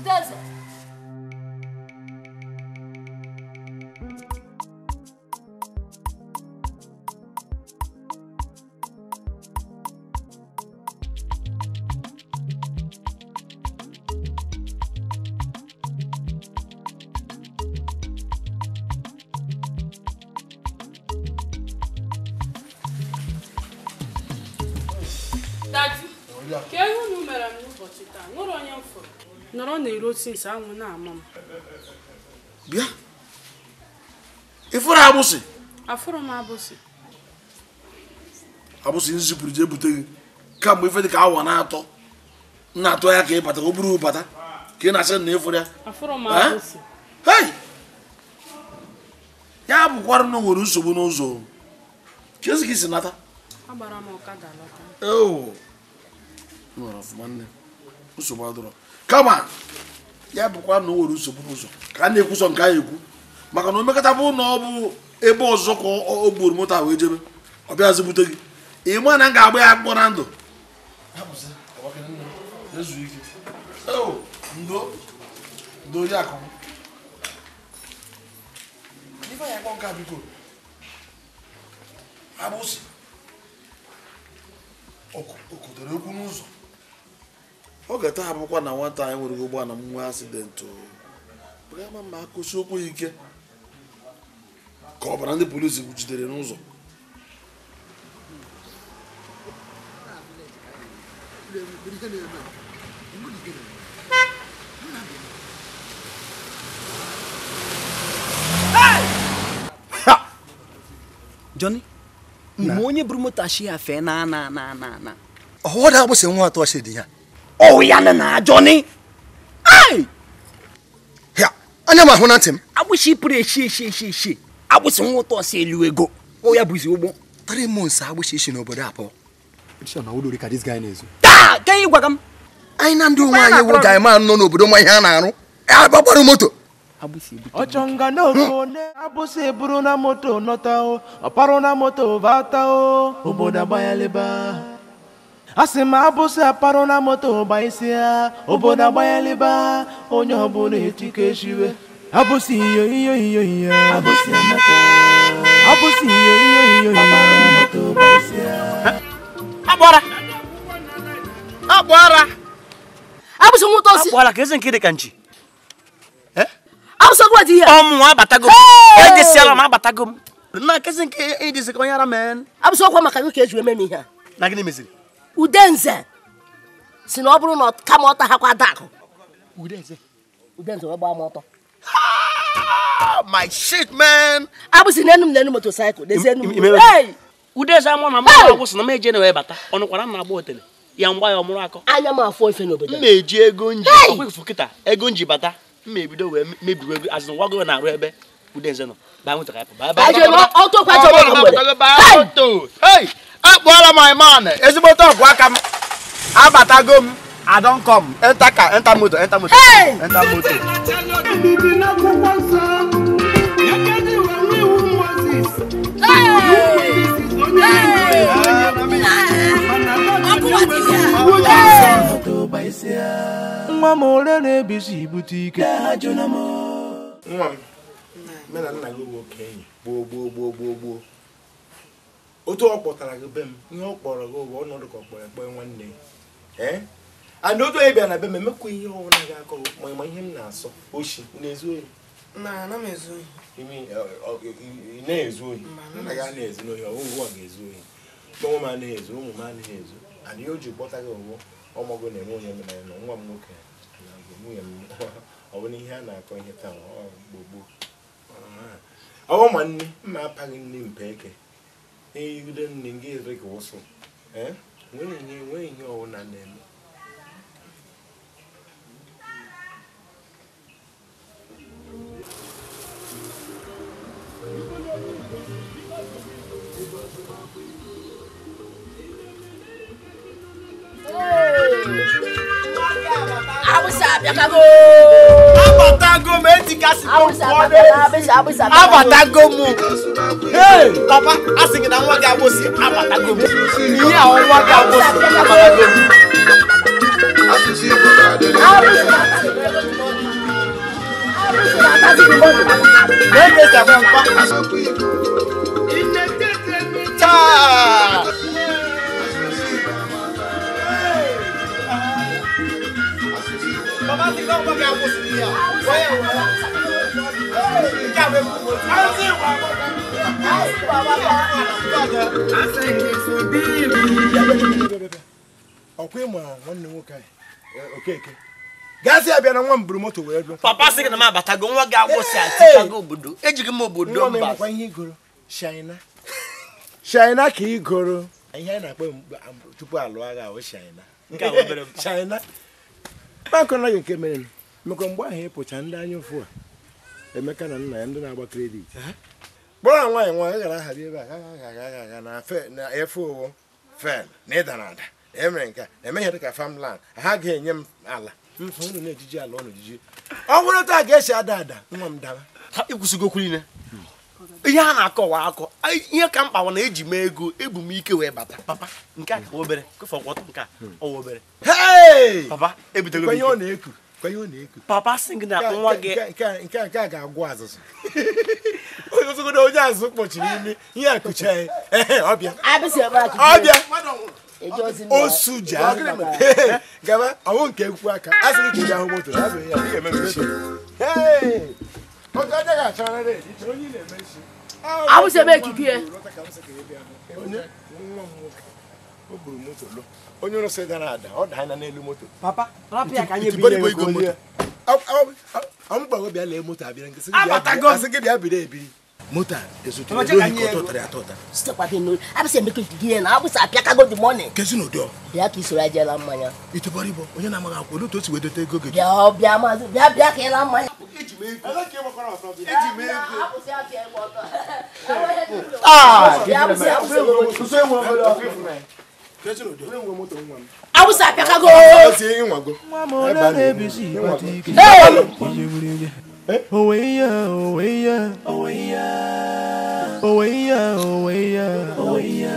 Udenze. si saa anwụ na-ama m bịa abusi? agbụsị afụrụ m agbụsị nzipụrụ ji ebute gị kamgbe ife dị ka awa na-atọ na atọ ya ka ị bata o buru bata ka ị na-asị na ịfụrụ ya ya bụkwara na nwere nsogbu n'ụzọ ka esi ka isi nata nsogbu adọrọ kama ya bụkwa na o nwere nsogbu n'ụzọ ka a na-ekwusọ nke anyị ekwu maka na omekata bụ na ọ bụ ebe ọzọ ka o gburu moto wee jebe ọ bịazi bute gị ịma na m ga-agba ya akwụkwọ na ndụ okodoro okwu n'ụzọ ọ ga-atahapụkwa na nwata anyị nwere ụgbọ na nwa asidentị ama ma akụsi okwu ike ka ọbara ndị polisi jidere n'ụzọ Johnny mgbe onye buru moto ashi ya fee na na na na na ọwụda agbụsị nwa atọ dị ya ọwụya na ajọni anya m ahụ na ntị m agbụsị pụrụ eshi eshi eshi eshi agbụsị nwa ụtọ si elu ego ya bụzi ụgbọ three months agbụsị eshi n'obodo abụọ taa ka ị gwaga m anyị na ndị onwe anyị wụ ga ma nọ n'obodo nwa ihe a na-arụ e, agbagbara moto ọchọnga n'oko ne abụsị buru na moto nọta o ọparụ na moto bata o obodo agbanyaleba asị sị m abụsị aparụ na moto gbaisi ya obodo agbanyeliba onye ọbụla etika echiwe abụsị iyo iyo iyo iyo abụsị iyo iyo iyo iyo agbara agbara abụsị nwụta osi agbara ka eze nke dị ka nchi e? abụsị ọgwụ adịghị ọmụ abatago m edesiala m abatago m na kezi nke edesi ka onye ara mee abụsị ọkwa maka gị ka eji eme m ihe a na gịnị meziri udenze si na ọ bụrụ na kama ọta ha kwa dakụ udenze udenze wee gbaa m ọtọ ah, my shit man abụsị n'enu m n'enu motosaịkụl n'ezi enu m udenze amụ na mmadụ agwụsị na m eje na wee bata ọnụkwara m na-agba otele ya mgba ya ọmụrụ akọ anya m afọ ife n'obodo m na-eji ego nji ọkwa efu kịta ego nji bata m ma ebido wee mebiwe azụ wago na arụ ebe kudenze hey my man ezigbo talk wa kam abatago m i don come enter car enter motor enter motor hey! nwa m ole na-ebizi ibute ike nwa m nne na nna gị bụ oke enyi gboo gboo gboo gboo gboo otu ọ kpọtara gị be m ihe ọ kpọrọ gị ụgwọ ọnọdụ ka ọ kpọrọ ekpee nwanne ya and otu onye bịara na be m emekwa ihe ọbụla gị akọ ma ma ihe m na-asọ ochi na-ezu ohi na-ezu ohi nna gị anaghị ezu ohi ọgwụgwọ ọ ga-ezu ohi ụmụ m anaghị ezu ụmụ m anaghị ezu and ihe o ji kpọta gị ụgwọ ọmọgụ na-enwe onye mere na nwa m nwoke na nwunye m *laughs* ọ bụrụ ihe a na-akọ ihe taa gbogbo awo manni mapha ke nimbeke eyikule ningi regoso eh ngwe ngwe ngwe ngwe ona nemo Thank you. Abusa Abiakago. Abatago méjì kasi tó kọ́lé. Abatago mu. Bàbá asìnkì náà wọ́n gé abosi abatago mu. Ìyá àwọn wọ́n gé abosi abatago mu. Lẹ́gbẹ̀ẹ́sì àfẹ́ nǹkan. Ìnẹ́gbẹ̀ẹ́sì mi. Táà. Mama ti lọ́wọ́ bí àwọn oṣù bíyà. Wáyà wà á. A ń sìn wà á. A ń sìn wà nwa m moto wee bịa. Papa sị na m abatago nwa gị agwụsị atịchago obodo. Ejighị m obodo mba. Nwa m ịmụkwa ihe igoro, Shaina. Shaina ka igoro. Ihe anyị na-akpọ tupu alụọ agha ahụ Shaina. Nke a obere mpa. Shaina. akọnaghị nke mere mekwa mgbe ahụ ịpụcha ndị anya ụfụ a emeka na nna ya ndị na-agba kredit kpọrọ a nwaanyị nwaanyị gara ahari ebe a na efe owo fel na ịda na ada emere nke emeghe dịka famland ha ga-enye m ala mfụrụ na ejiji ala ọnụ ejiji ọ bụrụ taa ga-esi ada ada nwa m dara ha ikwụsịgo okwu niile hmm. ihe a na-akọwa akọ ihe ka mkpa na eji mee ego ebu m ike wee bata papa nke a ka obere kụfọkwọtọ nke a ọwa hmm. obere papa na m papa sing na nwa gị nke a ga-agwụ azụzụ *laughs* ogogodo onye azụ kpọchiri imi ihe a kụcha ya ọbịa ọbịa osu ji gaba ọwụ nke ekwu aka a sịrị ka ị ga-ahụ moto ya ga-eme mmechi awụsa ebe ekike ya onye rụsị gara ada ọ daa anya moto lee moto gị bịa biri ebiri mota ezutu ɛ lóni kɔtɔ tɛrɛ atɔ ta. sitɛ papi n'o a bɛ se mɛ k'i di yɛn na a bɛ se a piyaka ko di mɔni. kɛsi n'o dɔn. biya k'i sɔrɔ a jɛ la manya. i tɛ bɔri bɔ o ɲɛna ma ka ko olu to sigi de tɛ ko kɛ. biya biya ma biya biya kɛ la manya. e jumɛn ye ko e jumɛn ye ko. aa muso ye ŋɔ fɔlɔ. kɛsi n'o dɔn. a bɛ se a piyaka ko. a bɛ se i ŋɔ ko. ee Owe ya, owe ya, owe ya, owe ya, owe ya, owe ya.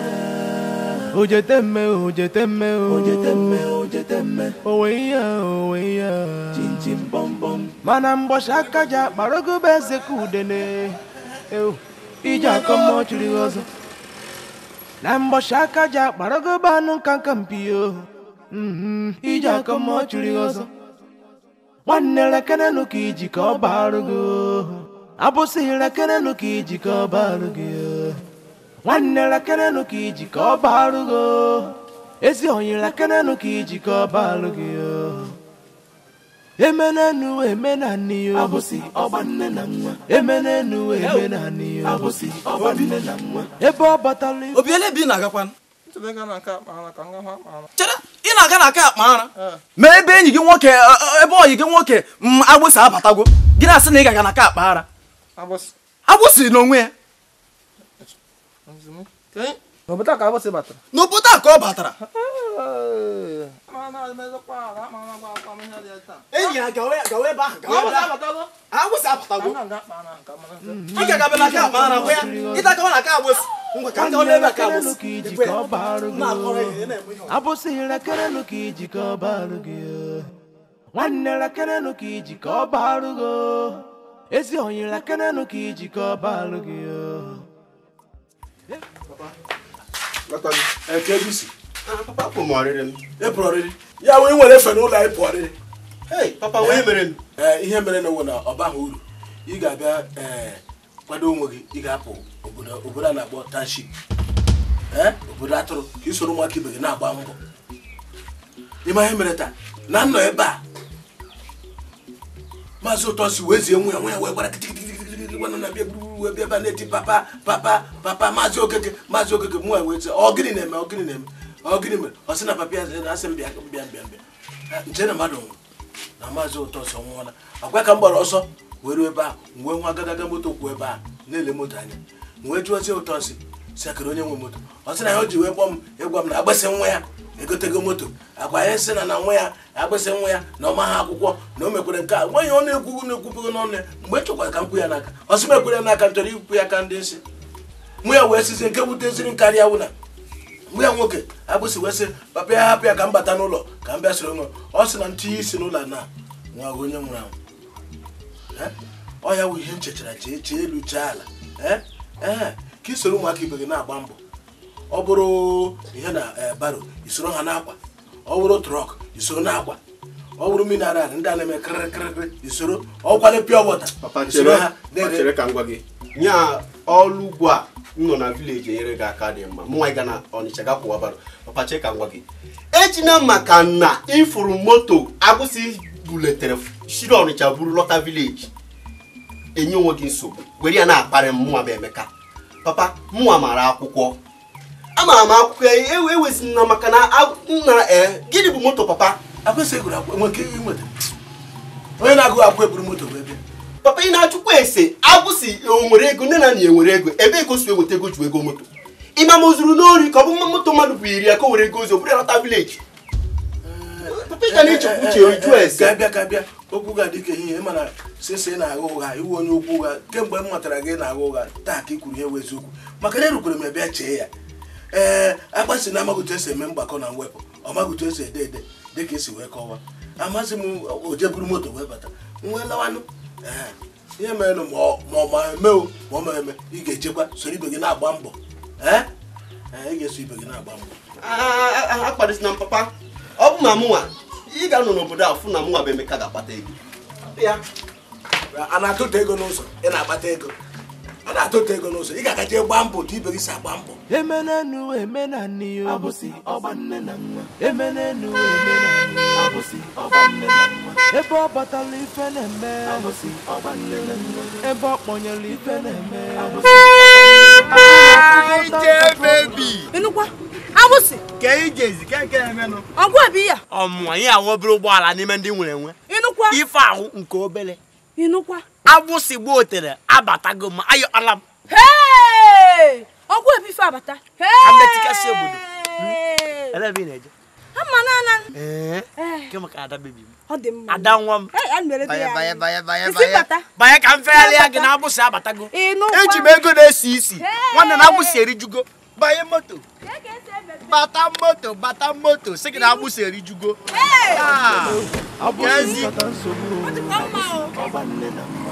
Ojeteme, ojeteme, ojeteme, ojeteme. Owe ya, owe ya, chim chim bom bom. Mana mbọchị aka ji akparago bụ eze ka udene. Ewu, ije akọ mmụọ chiri ọzọ. Na mbọchị aka ji akparago bụ anụ nka nka mpi yo. Mm-hmm, ije akọ mmụọ chiri ọzọ. nwanne lekenenụ ka iji ka ọ barụ gị abụsị lekenenụ ka iji ka ọ barụ gị nwanne lekenenụ ka iji ka ọ barụ gị ezi onye lekenenụ ka iji ka ọ barụ gị emenenu emenani yo abụsị nne na nwa emenenu emenani yo abụsị nne na nwa ebe ọ batala obi ele bi na-agakwa ị na-aga na aka akpa ara ma ebe enyi gị nwoke e, e, ebe oyi gị nwoke mm, agbụsị abatago gị na-asị na ị ga-aga na aka akpa ara agbụsị n'onwe ya n'obodo a ka ọ batara *laughs* enyi ya gawa ebe ga a na aka ka iji ka ọ barụ gị nwanne rekerelụ ka iji ka ọ barụ gị ezi onye rekerelụ ka iji ka ọ barụ gị papa kwụ m ọrịrị m ịpụrụ ọrịrị ya wee nwere efe na anyị pụ ọrịrị papa wee mere m ihe mere na na ọ baghị uru ị ga-abịa kwado onwe gị ị ga-apụ obodo a na-akpọ tanship obodo atụrụ ka ị soro ụmụaka ibe gị na-agba mbọ ịma ihe mere taa na nnọ ebe a maazị ụtọsi wee zie nwe ya nwe ya wee na-eme. ọ gịnị mere ọ sị na papa ya asị m bịa bịa bịa nche na mmadụ nwụrụ na maazị ụtọ ọsọ nwụọla akwa ka m gbara ọsọ were ebe a wee nwa agadaga moto kwuo ebe a na-ele moto anya wee jụọ sị ụtọ si sakịrị onye nwe moto ọ sị na ya o ji wee kpọọ m ịgwa e m na agbasị nwa ya egotego moto agwa ya sị na na nwa ya agbasị nwa ya na ọma ha akwụkwọ na o mekwere nke a nwaanyị ọ na-ekwugo na-ekwubugo n'ọnụ ya mgbe e chọkwara ka m kwu ya n'aka ọ sị mekwere ya n'aka m chọrọ ikwu ya ka ndị nsị mụ ya wee sizi nke wuteziri m karịa wụna mgbe ya nwoke abụsị wee papa ya hapụ ka m bata n'ụlọ ka m bịa soro nwe ọ sị na ntinye isi n'ụlọ na nwa onye nwụrụ anwụ ọ ya wụ ihe m chee chee elu chee ala ee ka isoro ụmụaka ibe gị na-agba mbọ ọ bụrụ ihe na eh, baro isoro ha n'akwa ọ bụrụ trọk isoro n'akwa ọ bụrụ mineral ndị a na-eme kịrịkịrịkịrị isoro ọ kwado pịa isoro ha nye ọrụ ugwu a m nọ na vileji enyere gị aka dị mma mụnwa gana na ọnịcha gakwụ abalị papa cheka ngwa gị ejina maka na ịfụrụ moto agbụsị buletere shiri ọnịcha buru lọta vileji enye onwe gị nsogbu were ya na-akparị mụnwa m emeka papa mụnwa mara akwụkwọ amaara m akwụkwọ ya ewezi na maka na nna ee eh, gịnị bụ moto papa onye na-agụghị akwụkwọ eburu moto wee papa ị na-achụkwa ese agwụsị onwere e ego nne na nna e nwere ego ebe ego si eweta ego ju ego moto ịma ma o zuru n'ori ka ọ bụ mma moto mmadụ bụ iri ya ka were ego ozi bụrụ lọta vileji papa ị ka na-echekwa uche oju ese kabịa kabịa okwu ga adị ka ehihie mana sese na-agha ụgha iwu onye okwu ụgha kemgbe m matara gị na-agha ụgha taa ka ị kwuru ihe wụ eziokwu maka na erukwere m ebe chee ya ee agbasi na amaghị otu esi eme mgbakọ na mwepụ ọ maghị otu esi ede ede dịka esi wee kọwaa amaghịzi m oje moto wee bata nwee lawanụ ihe merenụ ma ọ ma eme ma ọ maeme eme ị ga-echekwa soro ibe gị na-agba mbọ ị ga-eso ibe gị na-agba mbọ akpadịsina papa ọ bụ ma mụnwa ị ga-anọ n'obodo a fụ na mụnwa bụ Emeka ga-akpata ego ya a na-atụta ego n'ụzọ ị na-akpata ego a na-atụta ego n'ụzọ ị ga-agaje gbaa mbọ otu ibe gị si agba mbọ emenenu emenanị ọbụsị ọgba nne na nwa emenenu emenanị ọbụsị ọgba nne na nwa ebe ọ batala ife na-eme ọbụsị ọgba nne na nwa ebe ọ kpọnyere ife na-eme ọbụsị ịnụkwa agbụsị ka ị ga-ezi ka nke emenụ ọgwụ bụ ya ọmụma anyị ahụ obere ụgbọala n'ime ndị nwere enwe ịnụkwa ife ahụ nke obere ịnụkwa agbụsị gboo tere abatago ma ayọ ala m ọgwụ ebife abata hmm? eh. ada m banye ka m fegharịa gị na agbụsị abatago eji m ego na-esi isi nwanne na agbụsị erijugo banye moto e bata moto bata moto gị na agbụsị erijugo ah!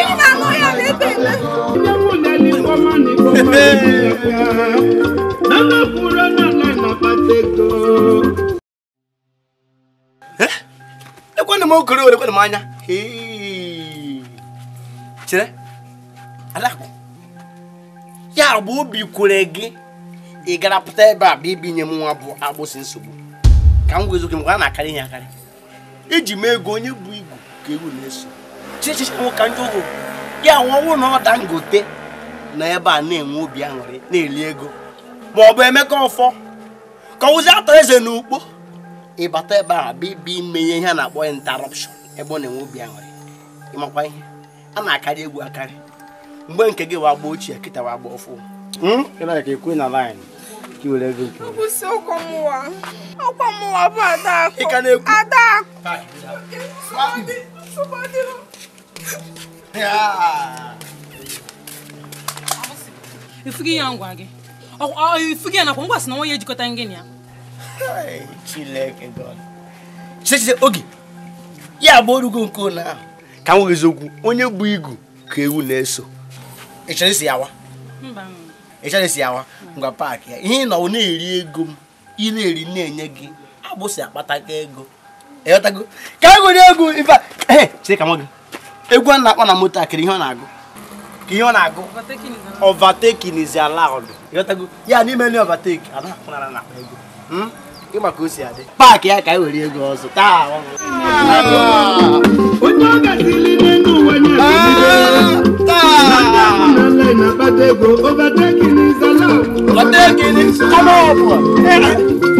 ekwana m okoro were kwana m anya chere alakụ ya bụ obi kwere gị ị gara pụta ebe a bụ ibinye m nwa bụ agbụsị nsogbu ka m gwa eziokwu m a na-akarị ihe akarị iji m ego onye bụ igwu ka egwu na-eso ka ndị ugwu ya nwọnwụ na ọ ngote na ebe a na-enwe obi aṅụrị na-eli ego ma ọ bụ emeka ọfọ ka ụzi atọ eze ukpo ịbata ebe a bụ ibi ime ihe a na-akpọ interruption ebe ọ na-enwe obi aṅụrị ịmakwa ihe a na-akarị egwu akarị mgbe nke gị wagba ochie kịta wagba ọfụ hmm? ị bụ na-ekwu ifughị ya ngwa gị ifughị ya nakwa ngwa si na nwa ya ejikọta gị na ya chiche oge ya bụ orugo nke ụlọ ahụ ka m nweghizi okwu onye bụ igu ka ewu na-eso ịchọrọ isi yawa ịchọrọ isi yawa ngwa paakị ya ihe na ọ na-eri ego m ị na-eri na-enye gị abụsị akpata ego ịghọtago ka m nwere ego ife a chee ka m gị egwu a na-akpọ na moto akịrị ihe ọ na-agụ ka ihe ọ na-agụ overtaking ala ọdụ ya n'ime na ego ịma ka o si adị paakị ya ka anyị e were ego ọzọ taa ọ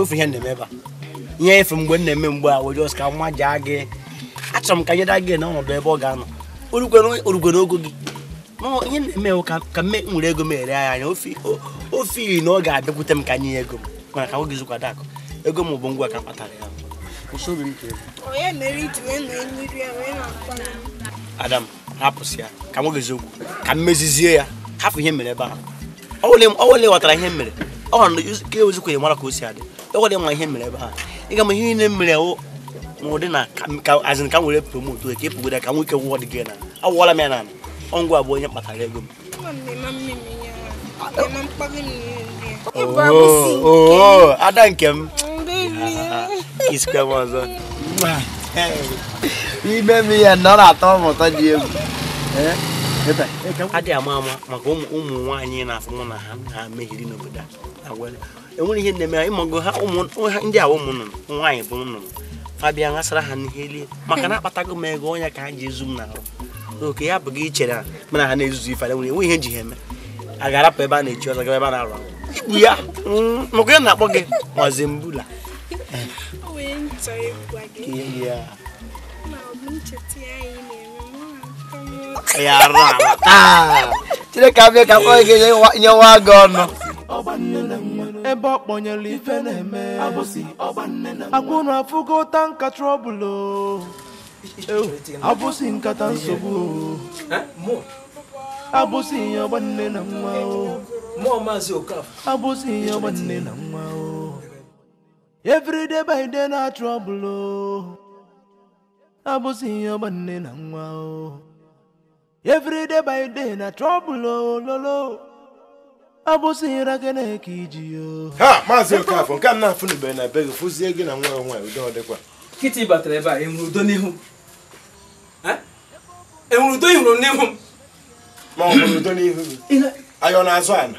wefu ihe na-eme ebe a ihe efu mgbe m na-eme mgbe a were ka mma jaa gị achọrọ m ka nyeda gị na ọnọdụ ebe ọ ga-anọ orugwe n'ogo gị ihe na-eme ka mme nwere ego m ere ya anya ofe iri na ọ ga-abịakwute m ka nye ego m mana ka nwoge zụkwado akụ ego m bụ ngwa ka kpatara ya adam hapụsị ya ka ka mmezizie ya ghọtara ihe mere ọ ewezikwa ya mara ka o si adị loko le ngwahe mmele bà, e ka mohe ne mmele o mo de na ka as in ka ngwe le promote o ke puda ka ngwe ke wo de gena a wala me nana ongo abo Mẹ patale go mamme mamme nya mamme pa ke ni oh oh adan to isikwe mwanzo diêm. mie nọrọ atọ mụta ji egwu adị ama ama maka ụmụ anh nwaanyị na-afụ mụ na ha ha mehiri n'obodo a enwere ihe na-eme ha umun ha ha umun awa umun umun nwaanyị bụ nnụnụ abịa ṅasara ha n'ihe lie na ka oke ya bụ chera mana ha na-ezuzu ife enwere enwe heme ji ha eme a ga-arapụ ebe a na-echi ọzọ gaba ebe a na-arụ ikpu ya mm, maka ya na-akpọ gị mazi mbula ya, ya arụ ala taa chineke abịa ebe ọ kpọnyere ife na-eme akwụrụ ụta nka trọbụl abụsị nkata nsogbu abụsị ihe ọgbanne na nwa abụsị ihe ọgbanne na nwa everyday by day na trọbụl abụsị ihe ọgbanne na nwa everyday by na trọbụl lolo abụsịra gị na eke iji yo ha maazị Okafọ nke a na-afụnubere na be gị fụzie gị na nwa nwaanyị udo ọ dịkwa kịtị batara ebe a enwere udo n'ihu enwere udo ihuru n'ihu m ma ọ fụrụ udo n'ihu gị ayọ na-azụ ala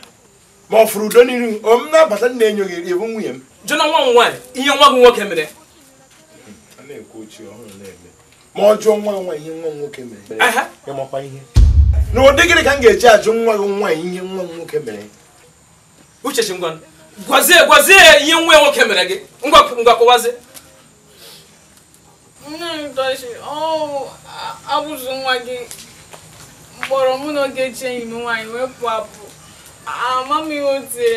ma ọ fụrụ udo n'ihu o m na-abata nna enyo gị ịbụ nwunye m jụna nwa m nwaanyị ihe nwa gị nwoke mere a ma ọ jụọ nwa nwa ihe nwa m nwoke mere ịmakwa ihe na ụdị gịnị ka m ga-eji ajụ nwa gị nwaanyị ihe nwa m nwoke mere uchechi ngwa gwazie gwazie ya ihe nwa nwoke mere gị ngwa kọwazie nne m tọchi ọ abụzụ nwa gị mkpọrọ mụ na Ogechi enyi m nwaanyị wee pụ apụ ama m ihe o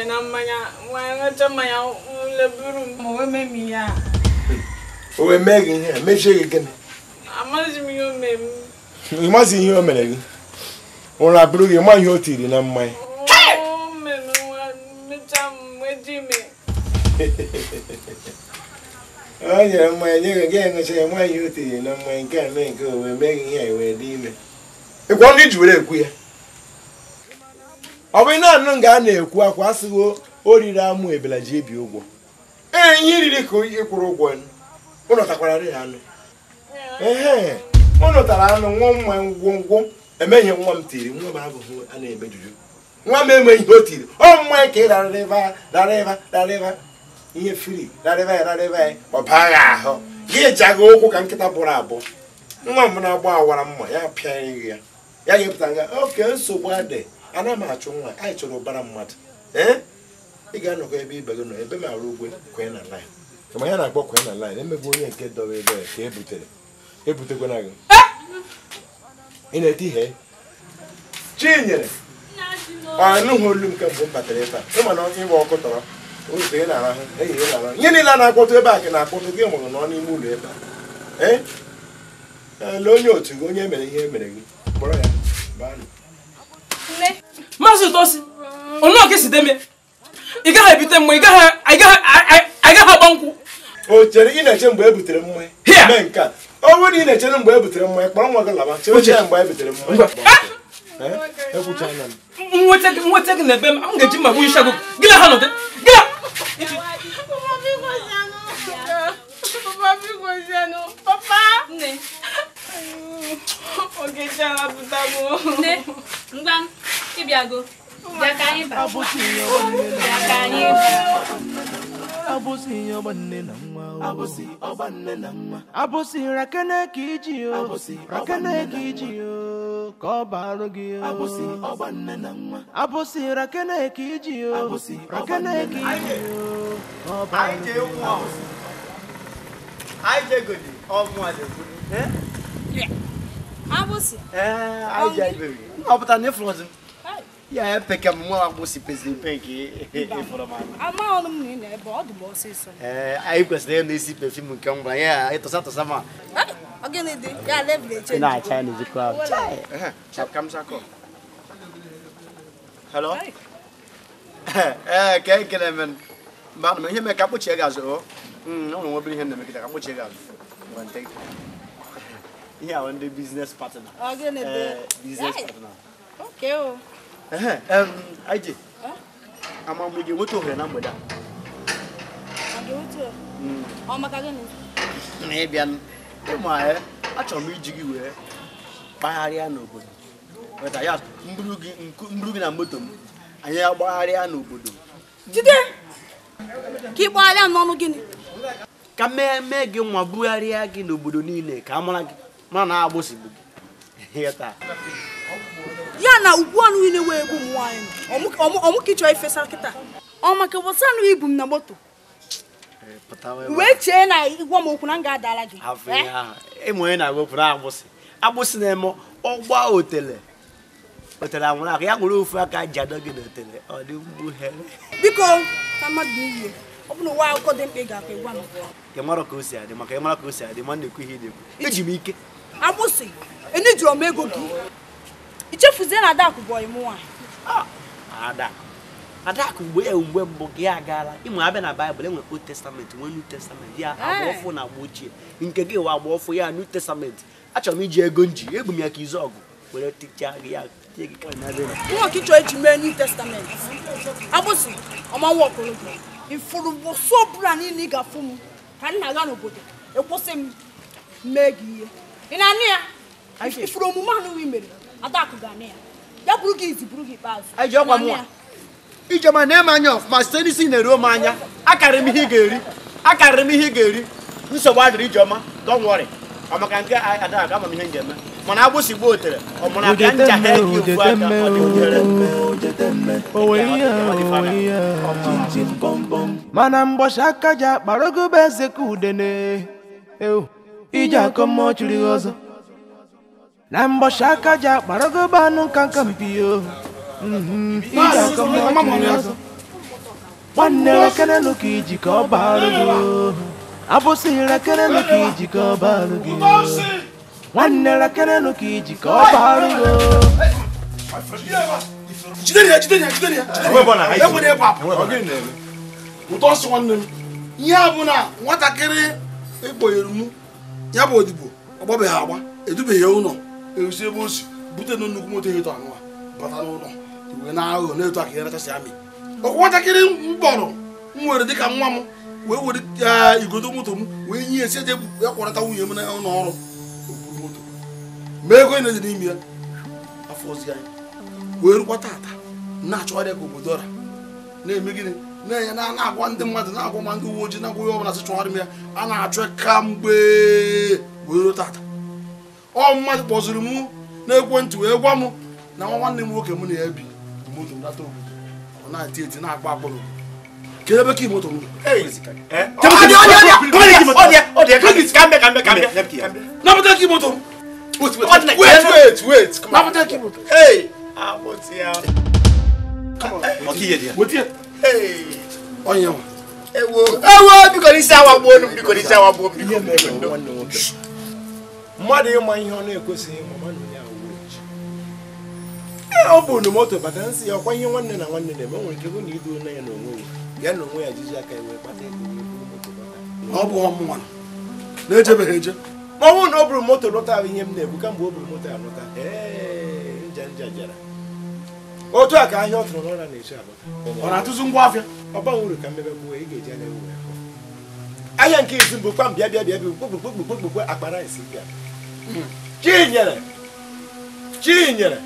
na mmanya nwanyị ṅụcha mmanya leburu m mee m ihe o mee gị ihe a mechie gị gịnị m ihe o mere gị ụra bụrụ gị ma ihe o tiri na mmanya o nyere mmanya nye gị ga ya nwaanyị o tiri na mmanya nke a mee nke owe mee gị ihe wee dị ime ịkwọ ndị ji were ekwu ya ọ bụ ị anụ nga a na-ekwu akwa asịghị o riri amụ ebela ji ebi ụgwọ ee ihe iriri ka ị kwụrụ ụgwọ ụnọtakwara ya anụ ehe ụnọtara anụ nwụọ mmanya ngwongwo emeghị nwa m tiri nwa m abụghị a na-emejuju nwa m enweghị ihe o tiri ọ mmanya ka ị rara ebe rara rara ihe firi rara ebe ya rara ebe ya ọ ahụ gị aga ụkwụ ka nkịta bụrụ abụ nwa m na-agba awara mma ya pịaghị ya ya ga-epụta nga oke nsogbu adị ana m achụ nwa anyị chọrọ ụbara mmadụ ee ị ga-anọkọ ebe ibe gị nọ ebe m arụ ugwe kwee na kama ya na-akpọ kwee na line emegbu onye nke dọba ebe ya ka ebutere ebutekwana gị eh! ị na-ete ihe chi chinyere anụghị olu nke mbụ m batara ebe a ịma na ịgba ọkụ tọrọ ụzọ ị na-arahụ ehihie ị na-arahụ ihe niile na-akpọtụ ebe a ka na-akpọtụ gị mụrụ nọ n'ime ụlọ ebe a eh? ele onye otu gị onye mere ihe mere gị kpọrọ ya maazị ụtọsi onyeọka si deme ị gaghị ebute mgbe ị gaghị agba nkwụ o chere ị na-eche mgbe e butere mmụọ mee nke a ọ bụrụ na ị na-echere mgbe e butere mmanya kpọrọ nwa gị laba chere chere mgbe e mmanya nweta gị na ebe m ga-eji magbu isha gị gị ha nọdụ gị ngwa ịbịago, ka anyị baa. abụsị ọgbanne eh? eh, na mma abụsị ọgbanne na mma abụsị rakene ka iji o rakene ka iji o ka ọ barụ gị o abụsị ọgbanne na mma abụsị rakene ka iji o rakene ka iji o ka ọ barụ gị o ayije gòdì ọmụ àdègùn abụsị ee ayije iberi ọ pụtara na ịfụrụ ọzọ Ya peke mwa wangu sipesi peke informano. Ama ono mnene e bodo bo siso. Eh, aí eu esse nem esse perfume que é um banha, aí tô só tô só ma. Alguém lhe deu, já leve de change. Na change não qual? Chai. Chap cam saco. Hello. Eh, *laughs* que é que né Mano, me é me capo chega zo. Hum, não não vou brincar me que capo chega. One take. Yeah, business partner. Alguém lhe Business partner. Okay. aje amamụ ji enweta ohere na mgbede a na ịbịa ịma ya achọrọ m iji gị wee kpagharịa n'obodo weta ya mburu gị na moto m anyị agbagharịa n'obodo jide ka ị gbagharịa n'ọnụ gịnị ka mee mee gị nwa bugharịa gị n'obodo niile ka a mara gị mara na agbụsị bụ gị taa na ugbu a niile wee egbu m nwaanyị ọmụ ifesa kịta ọ maka wọsa anụ ibu m na moto eh, wee chee na ịgwa m okwu na m ga-adala gị ịmụ onye eh? na-agwepụ na agbụsị agbụsị na-eme ọgba otele otele anwụrụ aka ya nwere ofu aka ji adọ gị na ọ dị mgbughere biko na mmadụ n'iyi ọ bụrụ ụwa akụkọ dị mkpa ị ga-akpa ịgwa m ị mara ka o si adị maka ị mara ka o si adị ma na-ekwu ihe ị na-ekwu eji m ike agbụsị enejiọm ego gị ichefuzie na Adaku bụ ọyị mụnwa ah, Adaku mgbe mgbe mbụ gị agaala ịmụ abịa na baịbụl enwere old testament e nwee new testament ya agba ọfụ na agba ochie nke gị wa agba ọfụ ya new testament achọrọ m iji ego nji egbu m ya ka izu ọgụ were tichaa gị ya nwa ka ịchọ eji mee new testament abụsị ọmanwa ọkọlọtọ ifuru mbọsụ ọbụla niile ị ga-afụ m ka nna ga n'obodo ekwụsị m mee gị ihe ị na-anụ ya ifuru omume anụghị mere Adakụ gaa na ya ya bụrụ gị izi bụrụ gị na-eme anya ọfụma site n'isi na-eruo m anya akarịrị m ihe ị ga-eri akarịrị m ihe ị ga-eri nsogbu adịrị ijeọma don't worry maka nke ada ga ama m ihe eme mana agbụsị gbuo otere ọmụrụ aka ncha ha ọ dị mana aka ji akparogobe eze ka udene iji akọ chiri ọzọ na mbọchị aka ji akparago bụ anụ nka nka mpio nwanne rekere nuka iji ka ọ baarụ gị abụsị rekere nuka iji ka ọ baarụ gị nwanne rekere nuka iji ka ọ baarụ gị ụtọ ọsọ nwanne m ihe a bụ na nwatakịrị ekponyere m ya bụ odibo ọ agba edubeghị ụlọ ewusi ebe o si bute na nnukwu moto eto anụwa bata n'ụlọ wee na-aghọ na-eto aka ya rachasị amị ọkwa ntakịrị mkpọrọ m were dịka nwa m wee were igodo moto m wee nye esi eje ya kwarata nwunye m n'ụlọ ọrụ okpuru moto ma ego na-ede n'ime ya afọ ozi anyị wee rukwa tata na-achọgharị ka obodo ọra na-eme gịnị na-enye na na-agwa ndị mmadụ na-agwa ma ndị uwe ojii na-agwa ihe ọbụla sị chọgharị m ya a na-achọ ka mgbe wee ruo tata ọ mmadụ kpọziri mụ n'ekwentị wee gwa m na nwa nwanne m nwoke m na ya bi moto ndata obodo ọ na-eti eti na-akpa akpụrụ kedu ebe ka moto napụta ka moto napụta ka moto onye ewo bikọ n'isi awa gbuo bikọ n'isi awa gbuo bikọ mmadụ ịma ihe ọ na-ekwesịghị ịma ji ọ bụ moto bata nsị ya ọkwa ihe nwanne na nwanne na-eme nwere ike bụ na idu onye ya na onwe ya ya na onwe ya jiji aka wee kpata ọ bụ ọmụnwa na-ejebeghị eje ma ọ bụrụ na ọ bụrụ moto lọta ahụ ihe m na-ebu kamgbe ọ bụrụ moto ya lụta nja nja jara otu a ka ahịa ọ tụrụ n'ụra na-eche abata ọ na-atụzi ngwa afịa ọba uru ka mmebe gbuo ị ga-eji anya ewu ahịa nke izu mbụ kpam bịa bịa bịa bịa kpokpokpokpokpokpo akpara esi bịa Chinyere! Chinyere!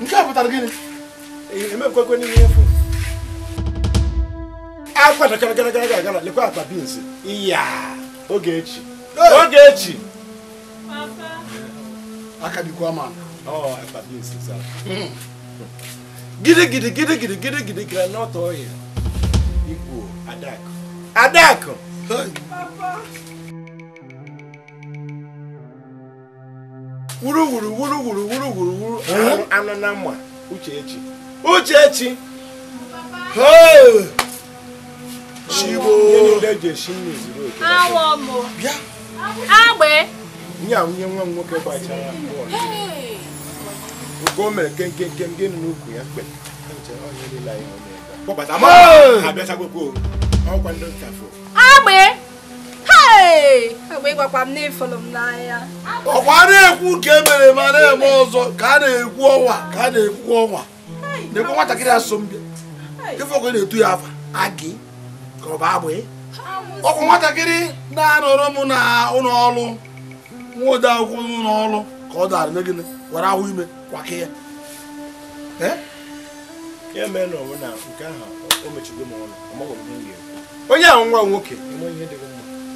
nke a pụtara gịnị emepụkwekwe n'ime efu akwa gara gara gara lekwa akpa bins iya oge echi oge echi aka dịkwa ma akpa bins zara gidi gidi gidi gidi gidi gidi ọhịa ikwu adakụ adakụ wuruwuru wuruwuru wuruwuru wuru anọ na mma uchechi uchechi ya nwa m nwoke gbachara o mere kenke nke m gịnị n'ukwu ya mgbe kpọbata ọkwa ndị nkafọ ọkwa na-ekwu nke emere ma na-eme ọzọ ka a na-ekwu ọnwa ka a na-ekwu ọnwa na-ekwu nwatakịrị asọmpi ife ọkụ na-etu ya afa agị ka ọ bụ agbị e. ọkwa nwatakịrị na-anọrọ m na ụlọ ọrụ nwa ode akwụkwọ n'ụlọ ọrụ ka ọ dara megide were ahụ ime kwake ya e onye ahụ nwa nwoke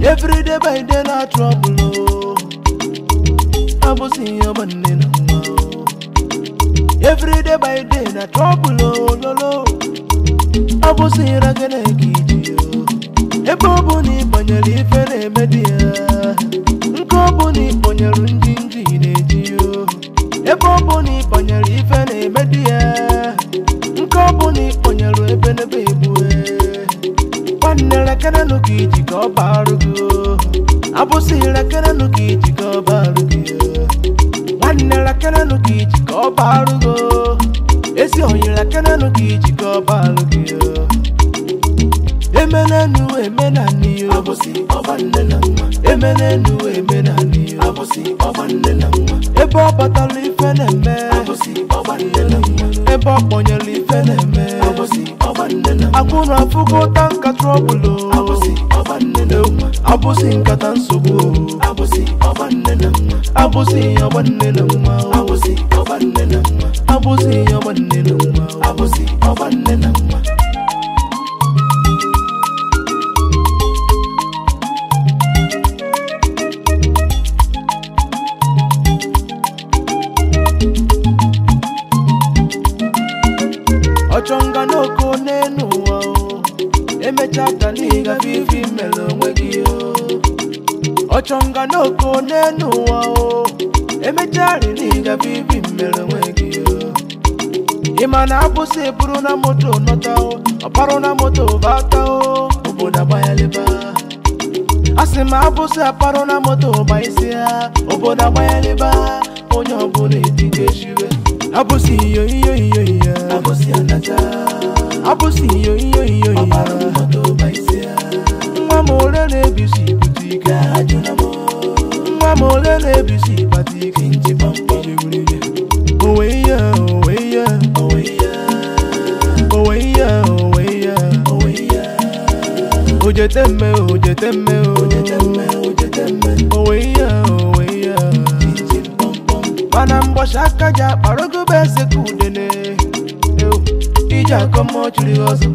Every day by day na trouble Abusi your money Every day by day na trouble lolo Abusi ragene kiji Ebe obu ni ife na-eme di ya Nke obu ni banyalu ndị nji ife na-eme ebenebe ebu e. nwanne rekerenụ ka iji ka ọ barụ gị abụsị rekerenụ ka iji ka ọ barụ gị e. nwanne rekerenụ ka iji ka ọ barụ gị esi onye rekerenụ ka iji ka ọ barụ gị e. emenenu emenani abụsị nne na nwa emenenu emenani abụsị nne na nwa ebe ọ batara ife na-eme abụsị ọbanne na nwa ebe ọ kpọnyere ife na-eme akwụna afụkọta nka trọbụlụ abụsị nkata nsogbu abụsị ọgbanne na mma abụsị ọgbanne na mma abụsị ọgbanne na mma abụsị ọgbanne na mma abụsị ọgbanne na mma gafe ife imere onwe gị ọchọ nga na oko ụwa o emecharị na ịgafe ife imere onwe gị ịma na abụsị bụrụ na moto nọta ọparụ na moto bata o obodo agbanyeleba a sị m abụsị aparụ na moto ọba isi O obodo agbanyeleba onye ọbụla etinye shiwe abụsị iyo iyo iyo iyo abụsị anata abụsị iyo iyo iyo iyo ọparụ na moto ọba nwa m ole na-ebisi ibute ike nwa m ole na-ebisi ịkpata ike onwe ihe onwe ihe onwe ihe onwe ihe ojete mme ojete mme onwe ihe onwe ihe mana mgbọchi aka ji akparogobe eze ka udene iji akọmọchiri ọzọ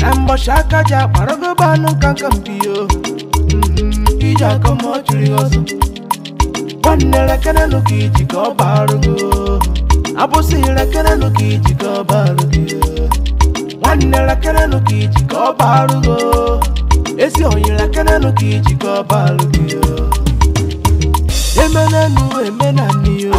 na mbọchị aka ji akparogoba anụ nka nka mbiyo iji aka ma ọ jụrụ ọzọ nwanne rekere nụ ka iji ka ọ barụ gị abụsị rekere nụ esi onye rekere nuki ka iji ka ọ barụ gị emenenu emenani yo